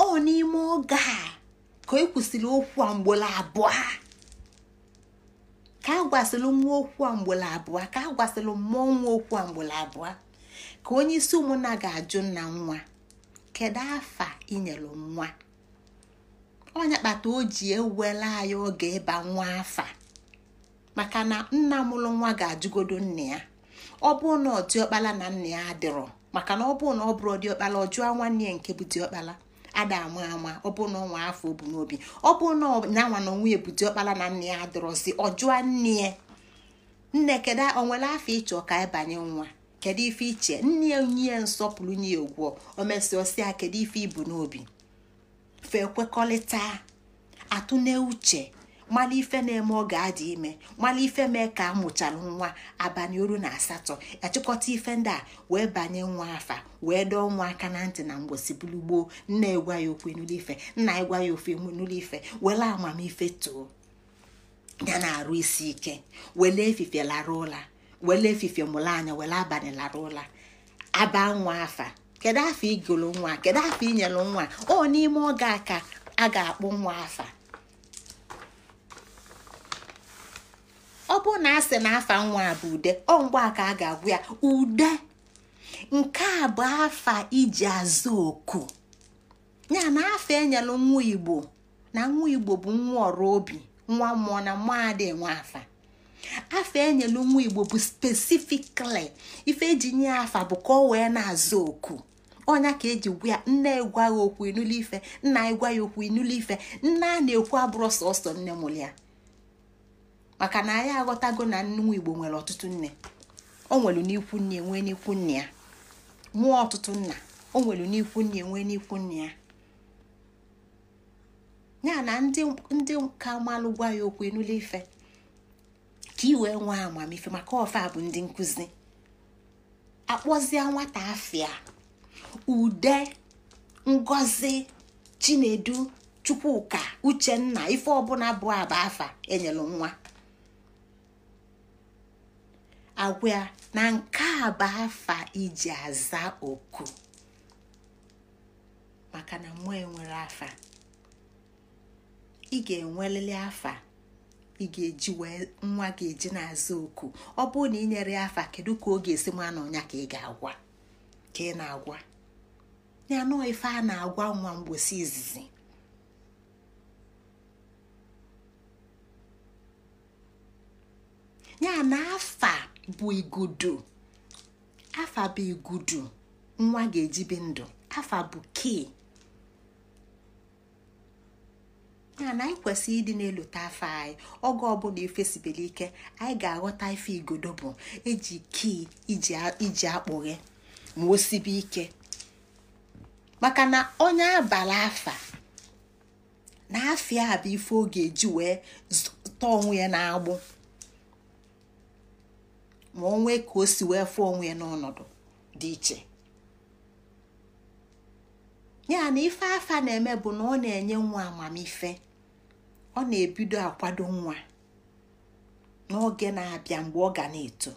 ọ n'ime oge a ka e kwụsịrị okwu a abụọ ka a gwasịrị nwa okwu a abụọ ka a mmụọ nwa okwu a mgbolo abụọ ka onye isi ụmụnna ga-ajụ nna nwa kedu afa inyelu nwa onye kpata o ji ewela anyị oge ịba nwa afa maka na nna mụrụ nwa ga-ajụgodo nna ya ọ bụrụ na ọdịọkpala na nna ya adịrọ maka na ọ bụrụ na ọ bụrụ ọdịọkpala ọ jụọ nwanne ya nke bụ diọkpala ada ama ama ọ bụ na ọnwa afọ obu n'obi ọ bụ na nanwa na ebute ọkpara na nne ya adọrọzi ọ jụọ nne ya nne kedu o nwere afọ ịchọ ka ịbanye nwa kedu ife iche nne ya onye ya nsọpụrụ nye ya ugwọ o mesịa kedu ife ibu n'obi fe kwekọrịta atụ na uche mmanụ ife na-eme ọ ga-adị ime mmanụ ife mee ka amụchalụ nwa abanye oru na asatọ achịkọta ife ndị a wee banye nwa afa wee dọọ nwa aka na ntị na mgbosi bulu gboo nna egwa ya okwu enulu ife nna egwa ya ofe enulu ife were amamife too ya na-arụ isi ike wele efife lara ụla wele efife mụrụ anya wele abanye lara ụla aba nwa afa kedu afọ igolo nwa kedu afọ inyelu nwa ọ n'ime oge a ka a ga-akpụ nwa afa ọ bụrụ na asị na afa nwa a bụ ude ọ mgbe a ka a ga-agwụ ya ude nke a bụ afa iji azụ oku ya na afa enyela nwa igbo na nwa igbo bụ nwa ọrụ obi nwa mmụọ na mmụọ adịghị nwa afa afa enyela nwa igbo bụ spesifikali ife eji nye afa bụ ka ọ wee na-azụ oku ọnya ka eji gwa ya nne gwa ya okwu inụlụ ife nna ya gwa ya okwu inụlụ ife nna a na-ekwu abụrụ sọsọ nne mụrụ ya maka na anyị aghọtago na nwa igbo nwere ọtụtụ nne o nwere n'ikwu nne nwee n'ikwu nne ya mụọ ọtụtụ nna o n'ikwu nne nwee n'ikwu nne ya ya na ndị nka malụ gwa ya okwu enule ife ka i nwa nwee amamife maka ofe a bụ ndị nkụzi akpọzie nwata afia ude ngozi chinedu chukwuka uchenna ife ọbụla bụ aba afa enyelu nwa agwa na nke a bụ afa iji aza oku maka na mmụọ enwere afa ị ga-enwelili afa ị ga-eji wee nwa ga-eji na-aza oku ọ bụrụ na ị nyere ya afa kedu ka ọ ga-esi nwa na ọnya ka ị ga-agwa ka ị na-agwa ya nọọ ife a na-agwa nwa mgbosi izizi ya na afa bụ igudu afa bụ igudu nwa ga-ejibi ndụ afa bụ kii ya na anyị kwesịrị ịdị na-elota afọ anyị oge ọbụla ifesibere ike anyị ga-aghọta ife igodo bụ eji kii iji akpụghe ma o sibe ike maka na onye abala afa na afịa a bụ ife ọ ga-eji wee tọọ onwe ya na-agbụ ma o nwee ka o si wee fụ onwe ya n'ọnọdụ dị iche ya na ife afa na-eme bụ na ọ na-enye nwa amamife ọ na-ebido akwado nwa n'oge na-abịa mgbe ọ ga na-eto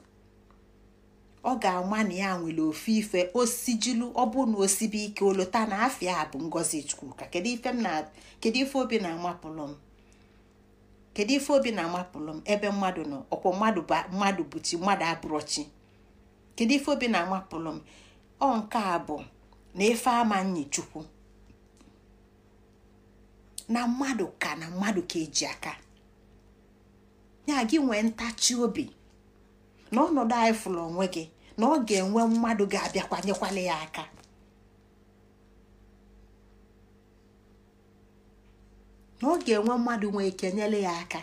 ọ ga-ama na ya nwere ofe ife osijilu ọ bụ na osibe ike olota na afịa bụ ngozi chukwu ka kedu ife obi na-amapụlụ m kedu ife obi na-amapụlụ m ebe mmadụ nọ ọkwọ mmadụ mmadụ buti mmadụ abụrụ kedu ife obi na-amapụlụ m ọ nke a bụ na efe ama chukwu na mmadụ ka na mmadụ ka eji aka ya gị nwee ntachi obi na ọnọdụ anyị fụrụ onwe gị na ọ ga-enwe mmadụ ga-abịakwanyekwala ya aka na ọ ga-enwe mmadụ nwee ike nyere ya aka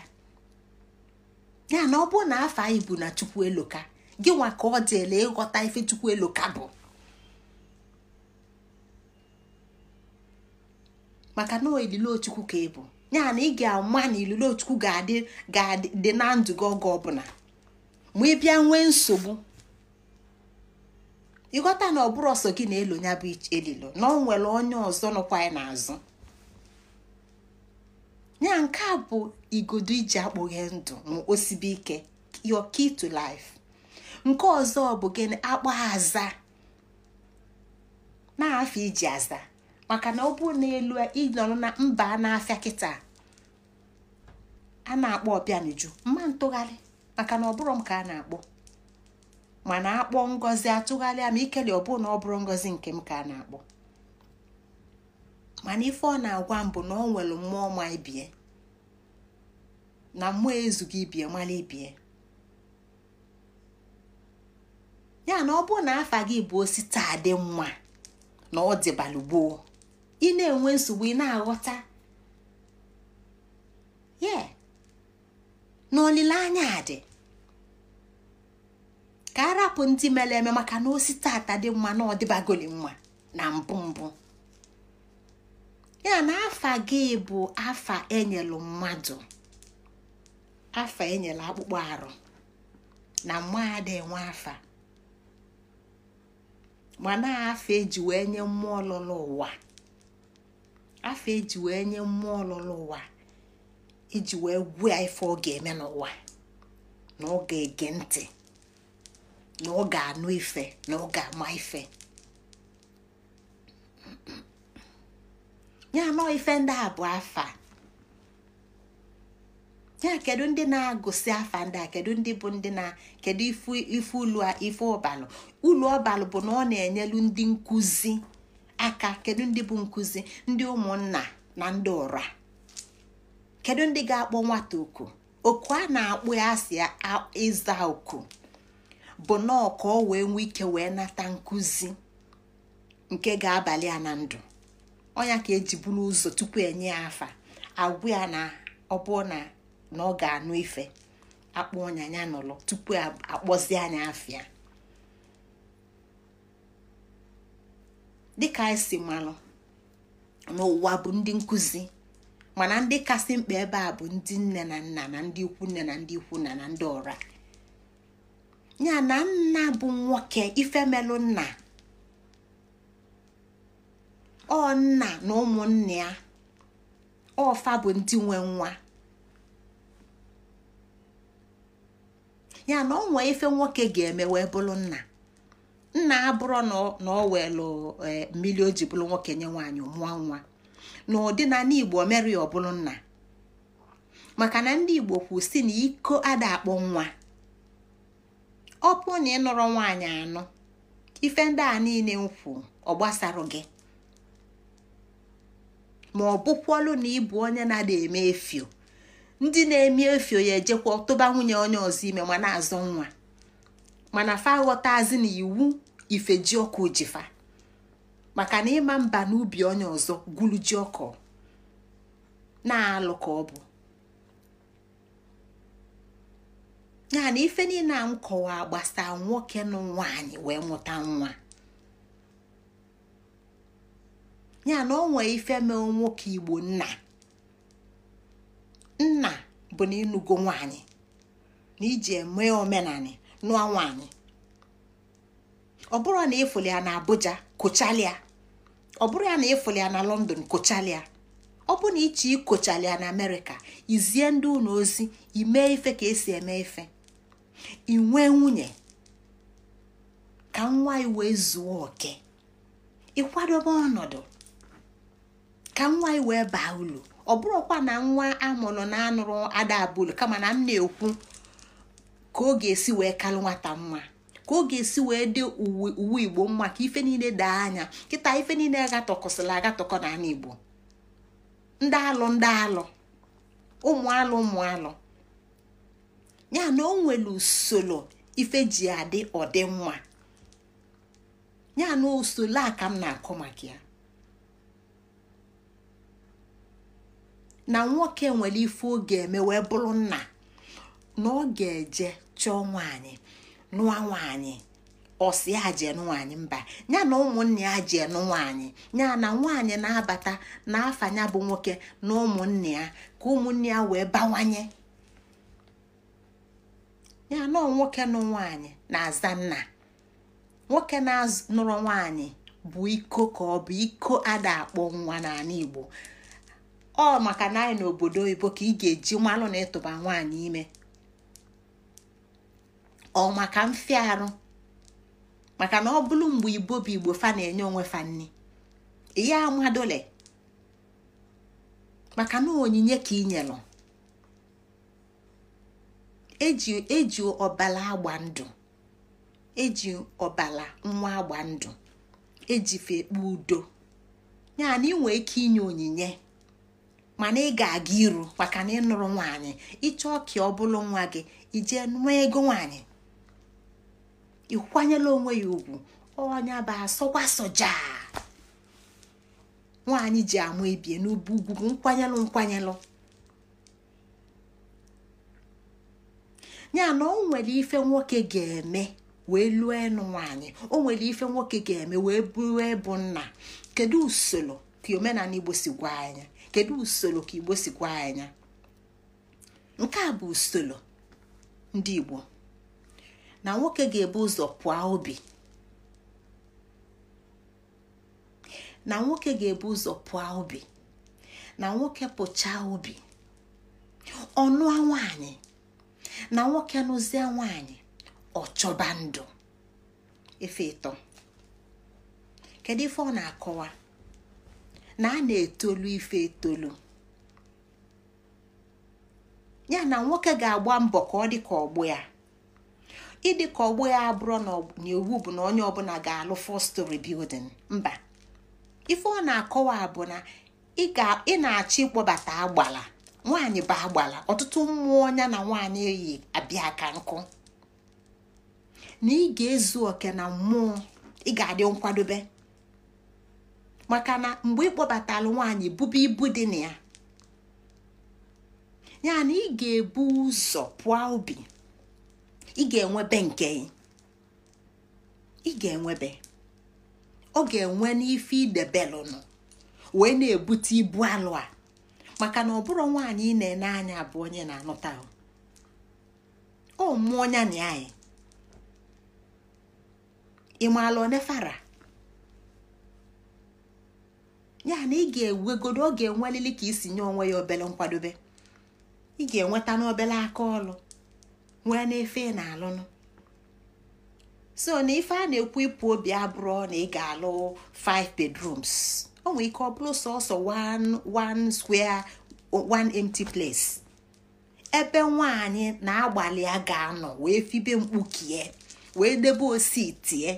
ya na ọ bụrụ na afọ anyị bụ na chukwu eloka gị nwa ka ọ dịela ịghọta ife chukwu eloka bụ maka na olilochukwu ka ị bụ ya na ị ga-ama na ililochukwu ga-adị ga-adị na ndụ gị oge ọbụla ma ị bịa nwee nsogbu ịghọta na ọ bụrụ ọsọ gị na-elo ya bụ elilo na ọ nwere onye ọzọ nọkwa anyị n'azụ ya nke a bụ igodo iji akpụghe ndụ osibi ike yo key to life nke ọzọ bụ gịnị akpọ aza na-afịa iji aza maka na ọ bụ n'elu ịnọrọ na mba na-afịa kịta a na-akpọ ọbịanju mma ntụgharị maka na ọ bụrụ m ka a na-akpọ mana akpọ ngozi atụgharịa ma ikele ọ na ọ bụrụ ngozi nke m ka a na-akpọ mana ife ọ na-agwa mbụ na ọ nwere mmụọ ma ibie na mmụọ ezughị ibie mara ibie ya na ọ bụrụ na afa gị bụ osita adị mma na ọ dịbalụ gboo ị na-enwe nsogbu ị na-aghọta ye na olileanya dị ka arapụ ndị mere eme maka na osita ata dị mma na ọdịbagoli mma na mbụ mbụ ya na afa gị bụ afa enyelu mmadụ afa enyela akpụkpọ arụ na mmụọ ada enwe afa mana afa eji wee nye mmụọ ọlụlụ ụwa afa eji wee nye mmụọ ọlụlụ ụwa iji e wee gwuo ya ife ọ ga-eme n'ụwa na ọ ga-ege ntị na ọ ga-anụ ife na ọ ga-ama ife ya nọ ife ndị a bụ afa ya kedu ndị na agụsi afa ndị a kedu ndị bụ ndị na kedu ife ulu ife ụbalụ ulu ọbalụ bụ na ọ na-enyelu ndị nkụzi aka kedu ndị bụ nkụzi ndị ụmụnna na ndị ụra kedu ndị ga-akpọ nwata oku oku a na-akpụ ya asị ịza oku bụ nọọ ka ọ wee nwee ike wee nata nkụzi nke ga-abalị ya na ndụ onya ka eji buru ụzọ tupu enye ya afa agwụ ya na ọ bụ na ọ ga-anụ ife akpọ ọnya ya n'ụlọ tupu akpọzi anya afịa dịka anyị si malụ n'ụwa bụ ndị nkụzi mana ndị kasị mkpa ebe a bụ ndị nne na nna na ndị ikwu nne na ndị ikwu na na ndị ọra ya na nna bụ nwoke ifemelụ nna ọ nna na ụmụnne ya ọfa bụ ndị nwe nwa ya na ọ nwee ife nwoke ga-eme wee bụrụ nna nna abụrụ na ọ welụ e, mmiri o ji bụrụ nwoke nye nwaanyị mụọ nwa na ndị igbo mere ya nna maka na ndị igbo kwu si na iko ada akpọ nwa ọ pụ na ịnụrụ nwaanyị anụ ife ndị a niile nkwu ọ gbasara gị ma ọ bụkwalụ na ịbụ onye na eme efio ndị na-eme efio ya ejekwa tụba nwunye onye ọzọ ime ma na-azọ nwa mana fa aghọtazi na iwu ifeji ọkụ jifa maka na ịma mba n'ubi onye ọzọ gwulu ji ọkụ na-alụ ka ọ bụ ya ife niile a m kọwaa nwoke na nwaanyị wee mụta nwa ya na onwe ife nwoke igbo nna nna bụ na ịnugo nwaanyị na iji eme omenanị nụọ nwaanyị ọ bụrụ na ịfụli ya na Abuja kụchalịa ọ bụrụ ya na ịfụli ya na London kochalia ọ bụ na iche ịkụchalịa na Amerịka izie ndị ụlọ ozi imee ife ka esi eme ife inwe nwunye ka nwa wee zuo oke ịkwadobe ọnọdụ ka nwa iwe wee baa ulu ọ bụrụkwa na nwa amụrụ na anụrụ ada abụlu kama na m na-ekwu ka ọ ga-esi wee kalụ nwata mma ka ọ ga-esi wee dị uwe igbo mma ka ife niile daa anya kịta ife niile agatọkọsịla agatọkọ n'ala igbo ndị alụ ndị alụ ụmụ alụ ụmụ alụ ya na o usoro ife ji adị ya na usoro a ka m na-akọ maka ya na nwoke nwere ife oge eme wee bụrụ nna na ọ ga-eje chọọ nwaanyị nụa nwaanyị ọsi aje nwaanyị mba ya na ụmụnne ya je nụ nwaanyị ya na nwaanyị na-abata n'afanya bụ nwoke na ụmụnne ya ka ụmụnne ya wee bawanye ya na nwoke nụ nwaanyị na-aza nna nwoke na-nụrụ nwaanyị bụ iko ka ọ bụ iko ada akpọ nwa n'ala Igbo ọ maka na anyị n'obodo oyibo ka ị ga-eji mmanụ na ịtụba nwaanyị ime ọ maka arụ maka na ọ bụrụ mgbe igbo bụ igbo fa na-enye onwe fa nni ya amadole maka na onyinye ka ị nyelụ eji eji ọbala agba ndụ eji ọbala nwa agba ndụ ejife ekpe udo yana ị nwee ike inye onyinye mana ị ga-aga iru maka na ịnụrụ nwaanyị ịchọọ ka ọ bụrụ nwa gị ijee nụọ ego nwaanyị ịkwanyela onwe ya ugwu ọnya bụ asọkwa soja nwaanyị ji amụ ebie n'ubu ugwu nkwanyelụ nkwanyelụ ya na o nwere ife nwoke ga-eme wee lụọ enu nwaanyị o nwere ife nwoke ga-eme wee bụrụ ebu nna kedu usoro ka omenala igbo si gwa anya kedu usoro ka igbo si gwa anya nke a bụ usoro ndị igbo na nwoke ga-ebu ụzọ pụa obi na nwoke ga-ebu ụzọ pụọ obi na nwoke pụchaa obi ọnụa nwanyị na nwoke nụzie nwaanyị ọchọba ndụ ife ịtọ kedu ife ọ na-akọwa na a na-etolu ife etolu ya na nwoke ga-agba mbọ ka ọ dị ka ọgbọ ya ịdị ka ọgbọ ya abụrụ na iwu bụ na onye ọbụla ga-alụ four bildin mba ife ọ na-akọwa bụ na ị na-achọ ịkpọbata agbala nwaanyị bụ agbala ọtụtụ mmụọ ọnya na nwaanyị eyi abịa ka nkụ na ị ga-ezu oke na mmụọ ị ga-adị nkwadobe maka na mgbe ịkpọbatara nwaanyị bube ibu dị na ya ya na ị ga-ebu ụzọ pụọ obi ị ga-enwebe nke ị ga-enwebe ọ ga-enwe n'ife idebelụnụ wee na-ebute ibu alụ a maka na ọ bụrụ nwaanyị ị na-ene anya bụ onye na-anụta ọ mụọ onya na anyị ị maala onefara ya na ị ga-ewegodo ọ ga-enwelili ka isi nye onwe ya obele nkwadobe ị ga-enweta n'obele aka ọlụ nwee n'efe na-alụnụ so na ife a na-ekwu ịpụ obi abụrụ na ị ga-alụ 5 bedrooms o nwere ike ọ bụrụ sọsọ one one square one empty place ebe nwaanyị na-agbalị a ga-anọ wee fibe mkpukie wee debe osi tie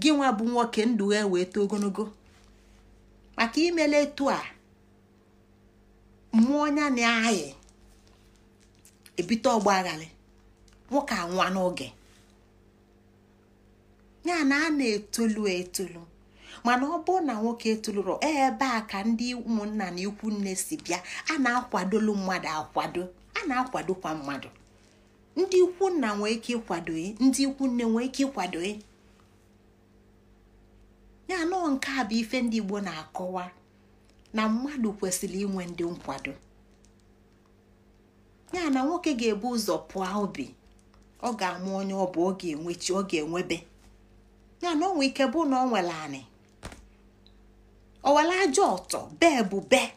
gị nwa bụ nwoke ndụ ya e wee too ogologo maka imele etu a mmụọ ya na-ayị ebite ọgba aghara nwoke anwa n'oge ya na a na-etolu etolu mana ọ bụrụ na nwoke etoluru e ebe a ka ndị ụmụnna na ikwu nne si bịa a na-akwadolu mmadụ akwado a na-akwadokwa mmadụ ndị ikwu nna nwee ike ịkwado ndị ikwu nne nwee ike ịkwado ya nọọ nke a bụ ife ndị Igbo na-akọwa na mmadụ kwesịrị inwe ndị nkwado ya na nwoke ga-ebu ụzọ pụọ obi ọ ga-amụ onye ọ bụ ọ ga-enwechi ọ ga-enwebe ya na onwe ike bụ na ọ nwere anị ọ ajọ ọtọ bee bụ bee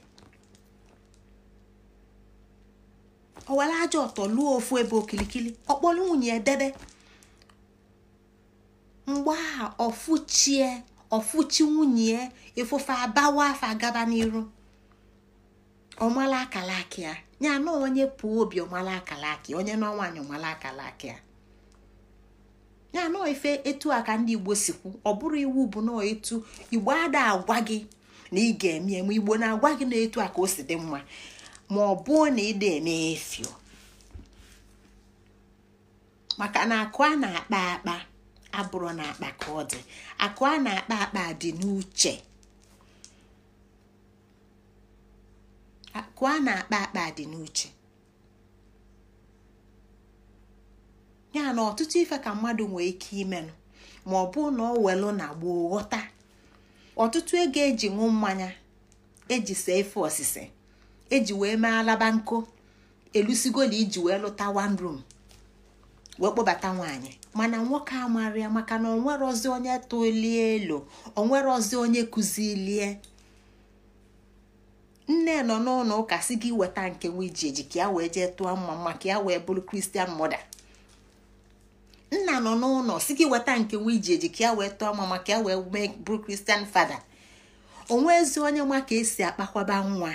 ọ ajọ ọtọ lụọ ofu ebe okilikili ọ kpọrọ nwunye edebe mgbe a ọfụchie ọfụchi nwunye ya ifụfe abawa afa gaba n'iru ọmala akalaki ya ya na onye pụọ obi ọmala akalaki onye n'ọnwaanyị ọmala akalaki ya ya na ife etu a ka ndị igbo sikwu ọ iwu bụ na etu igbo ada agwa gị na ị ga-eme eme igbo na-agwa gị na etu aka ka o si dị mma ma ọ na ịda eme efio maka na akụ a na-akpa akpa abụrụ na akpa ka dị akụ a na-akpa akpa dị n'uche akụ ya na ọtụtụ ife ka mmadụ nwee ike imenụ ma ọ bụ na ọ welu na gboo ghọta ọtụtụ ego eji ṅụ mmanya eji see efe osise eji wee mee alaba nko elusigo na iji wee lụta one room wee kpọbata nwaanyị mana nwoke a ya maka na onwerozi onye tolie elu onwerozi onye kụzilie nne nọ n'ụlọ ụka si gị weta nke nwiji eji ka ya wee jee tụọ mma mma ka ya wee bụrụ kristian mọda nna nọ n'ụlọ si gị weta nke nwiji eji ka ya wee tụọ mma mma ka ya wee mee bụrụ kristian fada onwe ezi onye nwa ka esi akpakwaba nwa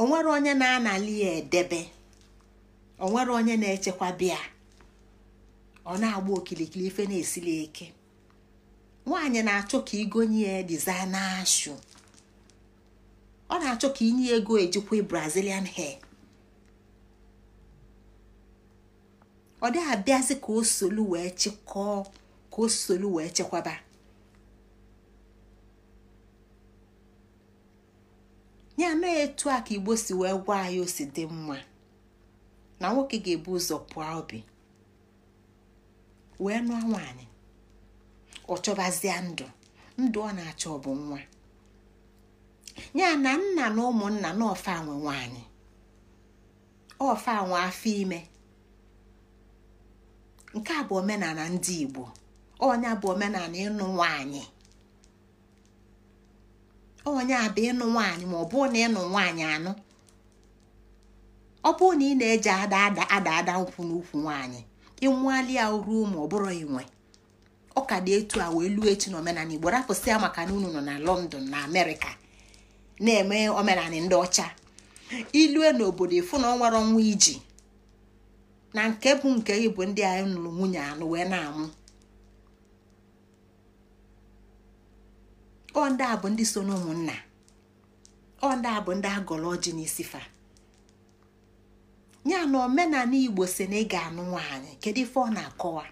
onwere onye na-anali ya edebe onwere onye na-echekwa bịa ọ na-agba okilikili ife na-esili eke nwaanyị na-achọ ka igonye ya na shu ọ na-achọ ka inye ego ejikwa brazilian hair ọ dị abịazi ka o solu wee chịkọọ ka o solu wee chekwaba Nye na etu a ka igbo si wee gwa anyị o si dị mma na nwoke ga-ebu ụzọ pụọ obi wee nụọ nwaanyị ọ chọbazie ndụ ndụ ọ na-achọ bụ nwa ya na nna na ụmụnna na ọfa nwe nwaanyị ọfa nwe afọ ime nke a bụ omenala ndị Igbo onye bụ omenala ịnụ nwaanyị onye a bụ ịnụ nwaanyị ma ọ bụ na ịnụ nwaanyị anụ ọ bụrụ na ị na-eji ada ada ada nkwụ n'ukwu nwaanyị ịnwali ya ruo ma ọ bụrụ inwe ọka ka dị etu a wee luo echi n'omenala igbo rapụsịa maka na unu nọ na london na amerịka na-eme omenala ndị ọcha ilue n'obodo ịfụ na ọ nwere ọnwa iji na nke bụ nke ịbụ ndị anyị nụrụ nwunye anụ wee na-amụ ọ ndị a bụ ndị so ụmụnna ọ ndị a bụ ndị agọrọ ọjị n'isi fa. ya na omenala igbo si na ị ga-anụ nwaanyị kedu ife ọ na-akọwa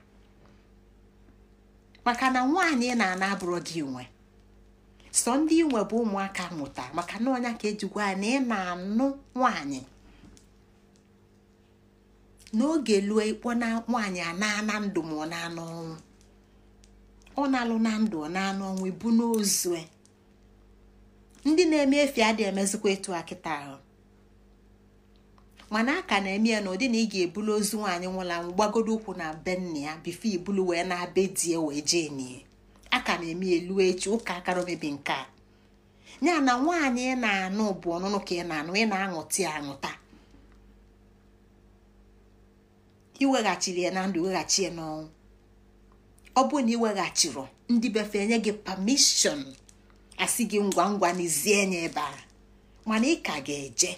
maka na nwaanyị na-ana abụrụ gị nwe sọ ndị inwe bụ ụmụaka mụta maka na ọnya ka ejikwa ya na ị na-anụ nwaanyị n'oge lue ikpo na nwaanyị ana ndụ ma ọ na-anụ ọ na-alụ na ndụ ọ na-anụ ọnwụ ibu ndị na-eme efi adịghị emezikwa etu a ahụ mana aka na-eme ya na na ị ga-ebulu ozu nwaanyị nwụla anwụ gbagodo ụkwụ na be nna ya bifo ibulu wee na-abe die wee jee nie aka na-eme elu echi ụka akara omebi nke a ya na nwaanyị ị na-anụ bụ ọnụnụ ka ị na-anụ ị na-aṅụta aṅụta iweghachiri ya na ndụ weghachi ya n'ọnwụ ọ bụrụ na iweghachiri ndị befe enye gị pamishọn asị gị ngwa ngwa n'izie nye ebe a mana ị ka ga-eje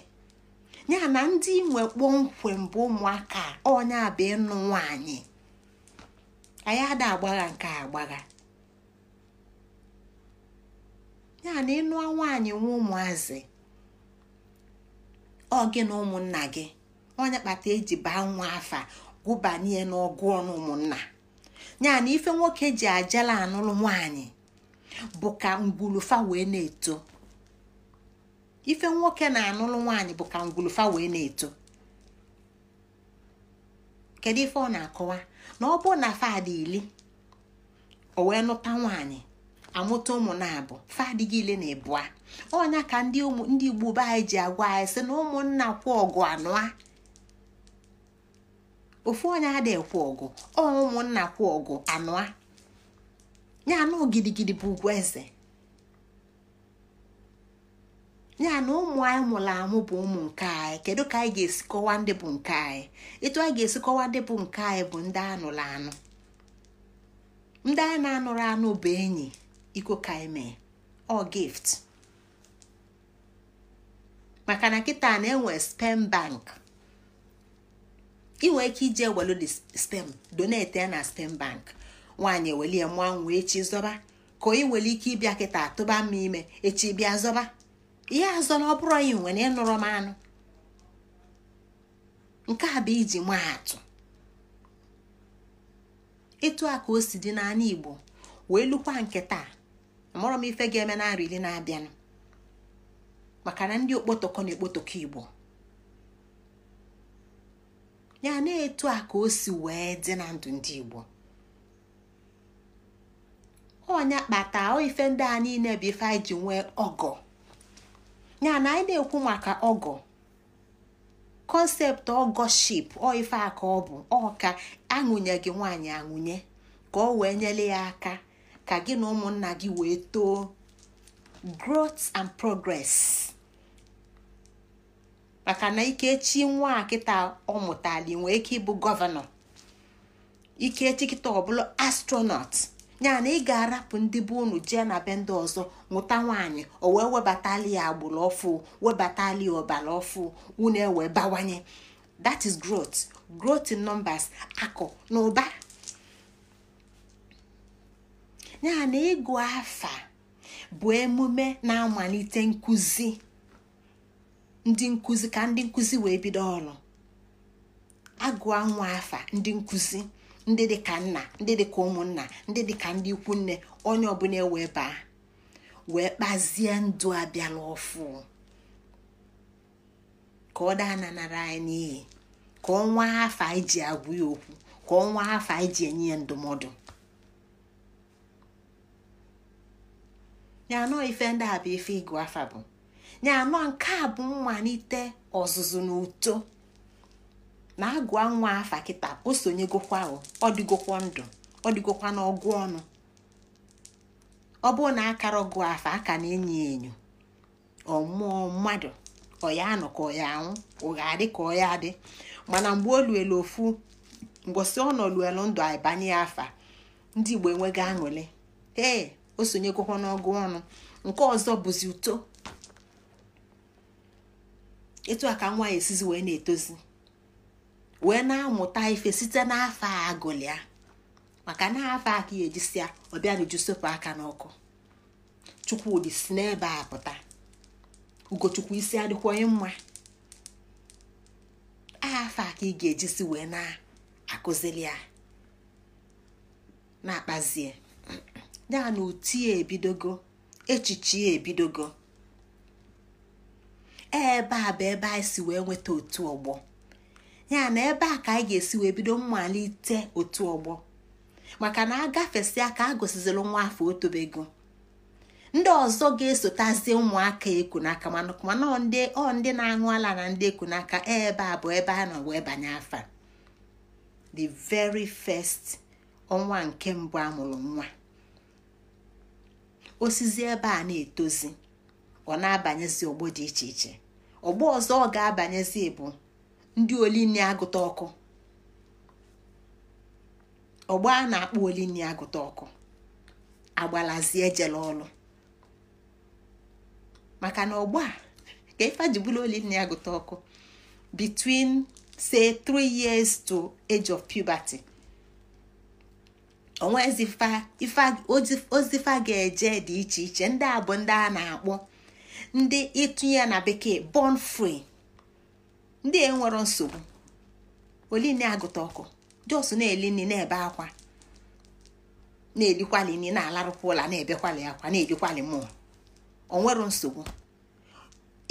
ya na ndị nwe kpọmkwem bụ ụmụaka onye bụ ịnụ nwanyị anyị ada agbagha nke agbagha ya na ịnụ nwaanyị nwe ụmụazị ọ gị na ụmụnna gị onye kpata eji baa nwa afa gụbanye n'ọgụ ọnụ ụmụnna ya na ife nwoke ji ajala anụrụ nwaanyị bụ ka ngwulufa wee na-eto ife nwoke na-anụlụ nwaanyị bụ ka ngwulufa wee na-eto kedu ife ọ na-akọwa na ọ bụ na fadị ili o wee nụta nwaanyị amụta ụmụ na-abụ fadị gị ile na-ebua ọnya ka ndị ndị igbo be anyị ji agwa anyị sị na ụmụnna kwụ ọgụ anụa ofu onye adịghị ekwu ọgụ ọ ụmụnna kwụ ọgụ anụa ya anụ gidigidi bụ ugwu eze ya na ụmụ anyị mụrụ amụ bụ ụmụ nke anyị kedu ka anyị ga-esi kọwa ndị bụ nke anyị etu anyị ga-esi kọwa ndị bụ nke anyị bụ ndị anụrụ anụ ndị anyị na-anụrụ anụ bụ enyi iko ka mee ọ gift maka na kịta na-enwe spem bank ị ike ije welu de spem donate ya na spem bank nwaanyị ewelie mụọ nwa echi zọba ka ị nwere ike ịbịa kịta tụba m ime echi bịa zọba ihe azọ na ọ bụrụ anyị nwere ịnụrụ m anụ nke a bụ iji maa atụ etu a ka o si dị n'anya igbo wee lukwa nke taa amụrọ m ife ga-eme narị iri na-abịanụ maka na ndị okpotokọ na ekpotokọ igbo ya na etu a ka o si wee dị na ndụ ndị igbo onya kpata ife ndị a niile bụ ife anyị ji nwee ọgọ ya na anyị na-ekwu maka ọgọ kọnsept ọgọship ọ ife aka ọ bụ ọka ka gị nwaanyị aṅụnye ka ọ wee nyere ya aka ka gị na ụmụnna gị wee too growth and progress maka na ikechi nwa kịta ọ mụtali nwee ike ịbụ gọvanọ ikechi kịta ọbụla astronaut ya na ị ga-arapụ ndị bụ unu jee na be ndị ọzọ nwụta nwaanyị o wee webatali ya agbụrụ ọfụ webatali ya ọbara ọfụ unu e wee bawanye that is growth growth in numbers akụ na ụba ya na ịgụ afa bụ emume na-amalite nkuzi ndị nkụzi ka ndị nkuzi wee bido ọrụ agụọ nwa afa ndị nkuzi. ndị dị ka nna ndị dị ka ụmụnna ndị dị ka ndị ikwu nne onye ọbụla ewee baa wee kpazie ndụ abịala n'ọfụ ka ọ daa nanara anyị n'iyi ka ọnwa afọ anyị ji agwụ ya okwu ka ọnwa afọ anyị ji enye ya ndụmọdụ nyanọ ife ndị a bụ ife ịgụ afa bụ nyanọ nke a bụ mmalite ọzụzụ na uto na agụa nwa afa kịta o sonyegokwa ọ dịgokwa ndụ ọ n'ọgụ ọnụ ọ bụrụ na akara ọgụ afa aka na-enyo enyo ọmụọ mmadụ ọya ya anọ ka ọya anwụ ụgha adị ka ọya adị mana mgbe o luelu ofu mgbọsị ọ nọ ndụ aịbanye ya afa ndị igbo enweghị aṅụrị ee o sonyegokwa n'ọgụ ọnụ nke ọzọ bụzi uto etu a ka nwa ya esizi wee na-etozi wee na-amụta ife site n'afọ a agụlịa maka na afọ aka ya ejisia ọbịanuju sepụ aka n'ọkụ chukwudi si n'ebe a pụta ugochukwu isi adịkwaghị mma afọ aka ị ga-ejisi wee na-akụzili ya na-akpazie ya na uti ya ebidogo echiche ya ebidogo ebe a bụ ebe anyị si wee nweta otu ọgbọ ya na ebe a ka anyị ga-esi wee bido mmalite otu ọgbọ maka na a ka a gosiziri nwa afọ otobego ndị ọzọ ga-esotazie ụmụaka eku n'aka mana ọ ndị na-aṅụ ala na ndị eku n'aka ebe a bụ ebe a nọ wee banye afa the very first ọnwa nke mbụ a mụrụ nwa osizi ebe a na-etozi ọ na-abanyezi ọgbọ dị iche iche ọgbọ ọzọ ọ ga-abanyezi bụ ndị olinni agụta ọkụ ọgba a na-akpọ olinni agụta ọkụ agbalazie ejele ọlụ maka na ọgba ka ife ji bụrụ olinni agụta ọkụ between say three years to age of puberty onwe ozifa ga-eje dị iche iche ndị a bụ ndị a na-akpọ ndị ịtụnye na bekee born free ndị a e nsogbu oline agụta ọkụ jos na eli nri na-ebe akwa na nri na-alarụkwa ụla na-ebekwali akwa na-edikwali mmụọ onwero nsogbu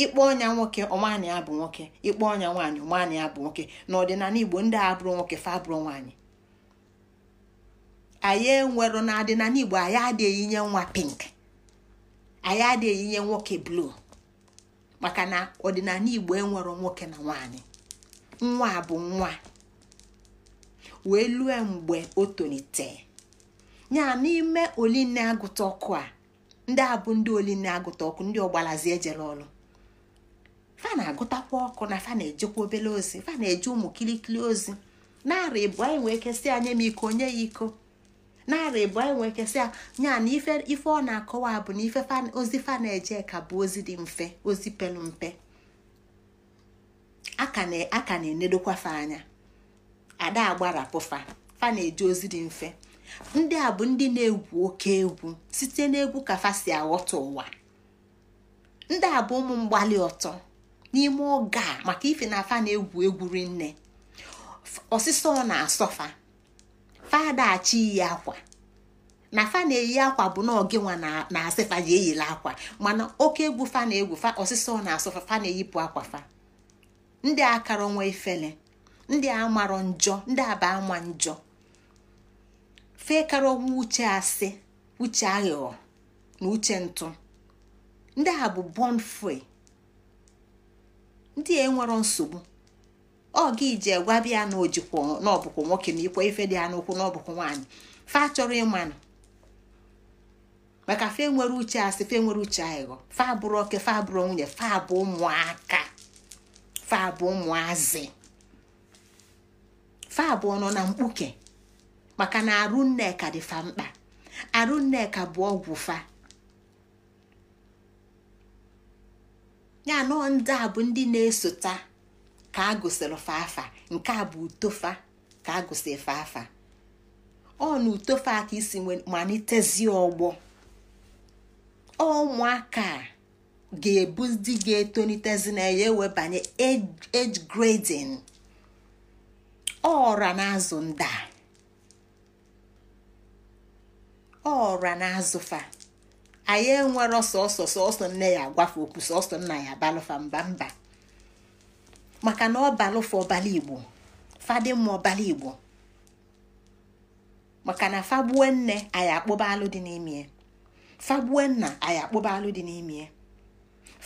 ịkpọ ọnya nwoke ọnwaanyị ya bụ nwoke ịkpọ ọnya nwaanyị ọnwaanyị ya bụ nwoke na ọdịnala igbo ndị a bụrụ nwoke fa abụrụ nwaanyị anyị enwero na adịnala igbo anyị adịghị nye nwa pink anyị adịghị nye nwoke bluu maka na ọdịnala igbo enwero nwoke na nwanyị nwa bụ nwa wee lue mgbe o tolite ya n'ime oline agụta ọkụ a ndị a bụ ndị oline agụta ọkụ ndị ọgbalazi ejere ọrụ fa na-agụtakwa ọkụ na fa na-ejekwa obere ozi fa na-eje ụmụ kilikili ozi narị ịbụọ anyị wee kesị anya m iko onye ya iko narị bụ anyị nwee kesị na ife ọ na-akọwa bụ na ife ozi fa na-eje bụ ozi dị mfe ozi pelu mpe ka na fa anya ada agbarapụfa fa na-eje ozi dị mfe ndị a bụ ndị na-egwu oke egwu site n'egwu ka fa si aghọta ụwa ndị a bụ ụmụ mgbali ọtọ n'ime oge a maka ife na afa egwu egwu rinne ọsịsọ ọ na-asọfa fada chi yi akwa na fa na-eyi akwa bụ na ọgịnwa na-asị fa ji eyila akwa mana oke egwu fa na-egwu fa ọsịsọ na-asụ fa na-eyipụ akwa fa ndị akara onwe ifele ndị a marọ njọ ndị aba ama njọ fee kara onwe uche asị uche aghụghọ na uche ntụ ndị a bụ bọnfue ndị a enwero nsogbu ọ gị ji gwabi ya na ojikwa n'ọbụkwụ nwoke na ikwe ife dị ya n'ụkwụ n'ọbụkwụ nwaanyị fa chọrọ ịmanụ maka fe nwere uche asị fe nwere uche aghụghọ fa abụrụ oke fa abụrụ nwunye fa abụ ụmụaka fa abụ ụmụazị fa abụọ nọ na mkpuke maka na arụ nneka dị fa mkpa arụ nneka bụ ọgwụ fa ya nọ ndị a bụ ndị na-esota ka a gụsịrị nke a bụ utofa ka a gụsịrị fafa ọ na utofa ka isi malitezie ọgbọ ụmụaka ga-ebu ndị ga-etonitezi na ya ewebanye age grading ọra na-azụ nda ọra na-azụ fa anyị enwere ọsọ sọsọ nne ya agwafe okwu sọsọ nna ya balụfa mba mba maka na ọ ọbalụfụ ọbala igbo fadị mma ọbala igbo maka na fagbuo nne anyị akpụba alụ dị n'ime fagbuo nna anyị akpụba alụ dị n'ime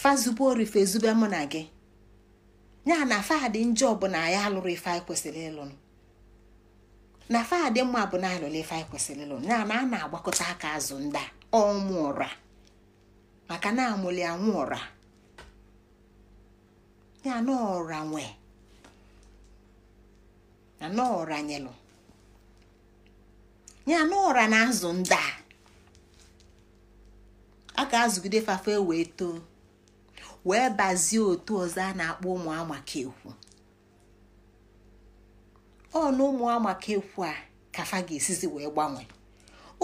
fazube orife ezube mụ na gị ya na fadị njọ bụ na anyị alụrụ ife anyị kwesịrị ịlụ na fadị mma bụ na alụrụ ife anyị kwesịrị ịlụ ya na a na-agbakọta aka azụ nda ọmụ ụra maka na amụli anwụ ụra ya n'ọra nwe ya n'ọra nyelụ ya n'ọra na-azụ ndị a a ga-azụgide fafe wee too wee bazie otu ọzọ a na-akpọ ụmụ amaka ekwu ọ na ụmụ amaka ekwu a kafa ga-esizi wee gbanwee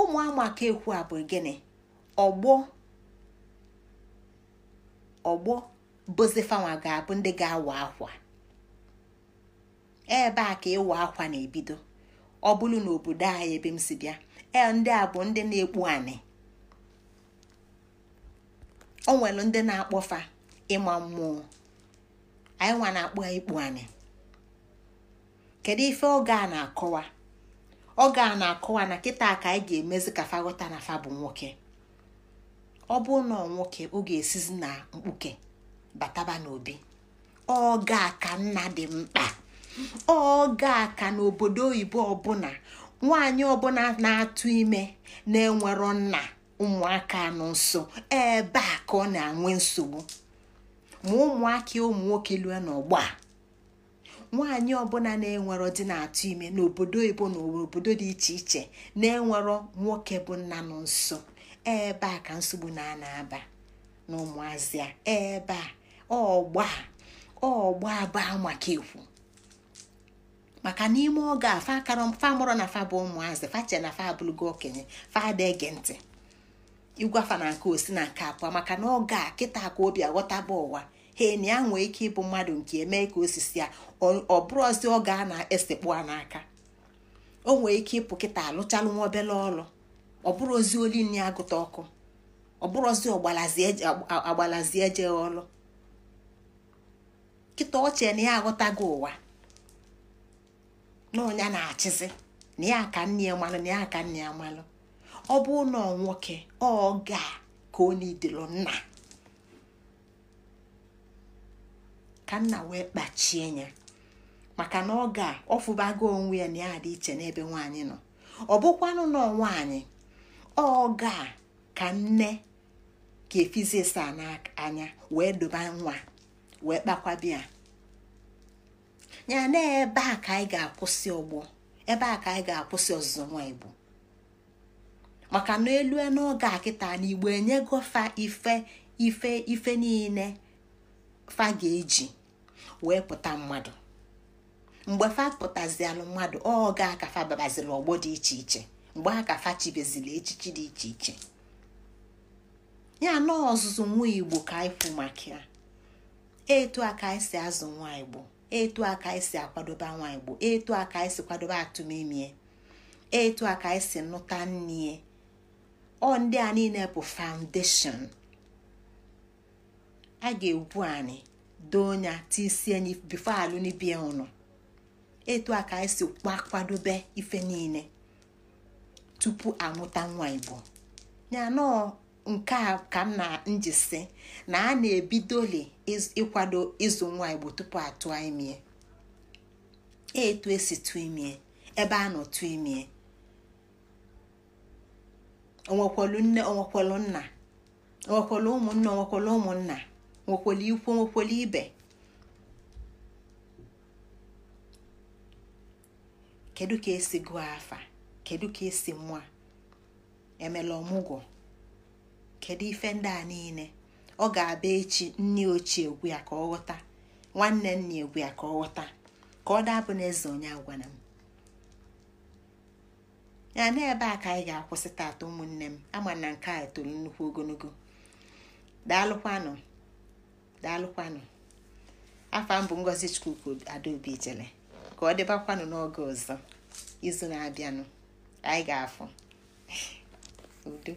ụmụ amaka ekwu a bụ gịnị ọgbọ ọgbọ bụzifanwa ga-abụ ndị ga-awa akwa ebe a ka ịwa akwa na-ebido ọ bụrụ obodo anyị ebe m si bịa ee ndị a bụ ndị na-ekpu anị o nwere ndị na-akpọfa ịma mmụọ anyị nwa na-akpọ ikpu anị kedu ife oge a na-akọwa oge a na-akọwa na kịta ka anyị ga-emezi ka faghọta na fa bụ nwoke ọ bụ na nwoke ọ ga-esizi na mkpuke bataba n'obi oge ka nna dị mkpa oge ka n'obodo oyibo ọbụla nwanyị ọbụla na-atụ ime na-enwero nna ụmụaka nọ nso ebe a ka ọ na-enwe nsogbu ma ụmụaka ụmụ nwoke lue n'ọgbọ a nwaanyị ọbụla na-enwero dị na-atụ ime n'obodo oyibo na obodo dị iche iche na-enwero nwoke bụ nna nọ nso ebe a ka nsogbu na-ana aba na ụmụazị a ebe a ọgba ọgba baa maka ekwu maka n'ime oge a fa mụrụ na fa bụ ụmụazị fa na fa gị okenye fa ada ege ntị igwafa na nke osi na nke abụọ maka na oge a kịta ka obi aghọtaba ụwa hen ya nwee ike ịbụ mmadụ nke eme ka osisi ya ọ ozi oge a na-esekpu a n'aka o nwee ike ịpụ kịta alụchalụ nwa obele ọrụ ọ bụrụ ozi olini agụta ọkụ ọ bụrụ ozi ọgbalazi eje ọrụ kịta ochie na ya aghọtago ụwa na ọnya na-achịzi na ya ka nne ya malụ na ya ka nne ya malụ ọ bụ na nwoke ọ ga ka ọ nidelo nna ka nna wee kpachie ya maka na ọ ga ọfụbago onwe ya na ya dị iche n'ebe nwaanyị nọ ọ bụkwanụ na nwaanyị ọ ga ka nne ka efizisa n'anya wee doba nwa wee kpakwa bịa ya na ebe a ka anyị ga-akwụsị ọgbọ ebe a ka anyị ga-akwụsị ọzụzụ nwa igbo maka na elu n'oge a kịta na igbo enyego ife ife ife niile fa ga-eji wee pụta mmadụ mgbe fa pụtazialụ mmadụ ọ ga aka fa babaziri ọgbọ dị iche iche mgbe akafa fa chibezili echichi dị iche iche ya na ọzụzụ nwa igbo ka anyị kwu maka ya etu aka anyị si azụ nwa igbo etu aka ka anyị si akwadobe nwa igbo etu a ka anyị si kwadobe atụmimie etu aka esi anyị si nụta nne ọ ndị a niile bụ faundeshon a ga-egwu anyị doo nya tisie anyị bifo alụnibie ụnụ etu aka anyị si kwadobe ife niile tupu anwụta nwa igbo ya nọọ nke a ka m na njisi na a na-ebidoli ịkwado ịzụ nwa igbo tupu atụ imie e etu esi tụọ imie ebe a nọ tụọ imie onwekwelu nne nna onwekwelu ụmụnne onwekwelu ụmụnna nwekwelu ikwu nwekwelu ibe kedu ka esi gụọ afa kedu ka esi mụọ emela ọmụgwọ kedu ife ndị a niile ọ ga-abịa echi nne ochie egwu ya ka ọ ghọta nwanne nna egwu ya ka ọ ghọta ka ọ dabụ n'eze onye agwara m ya na ebe a ka anyị ga-akwụsị taata ụmụnne m ama na nke a toro nnukwu ogologo daalụkwanụ daalụkwanụ afọ m bụ ngozi chukwuko adaobi jele ka ọ dịbakwanụ n'oge ọzọ izu na-abịanụ anyị ga-afụ udo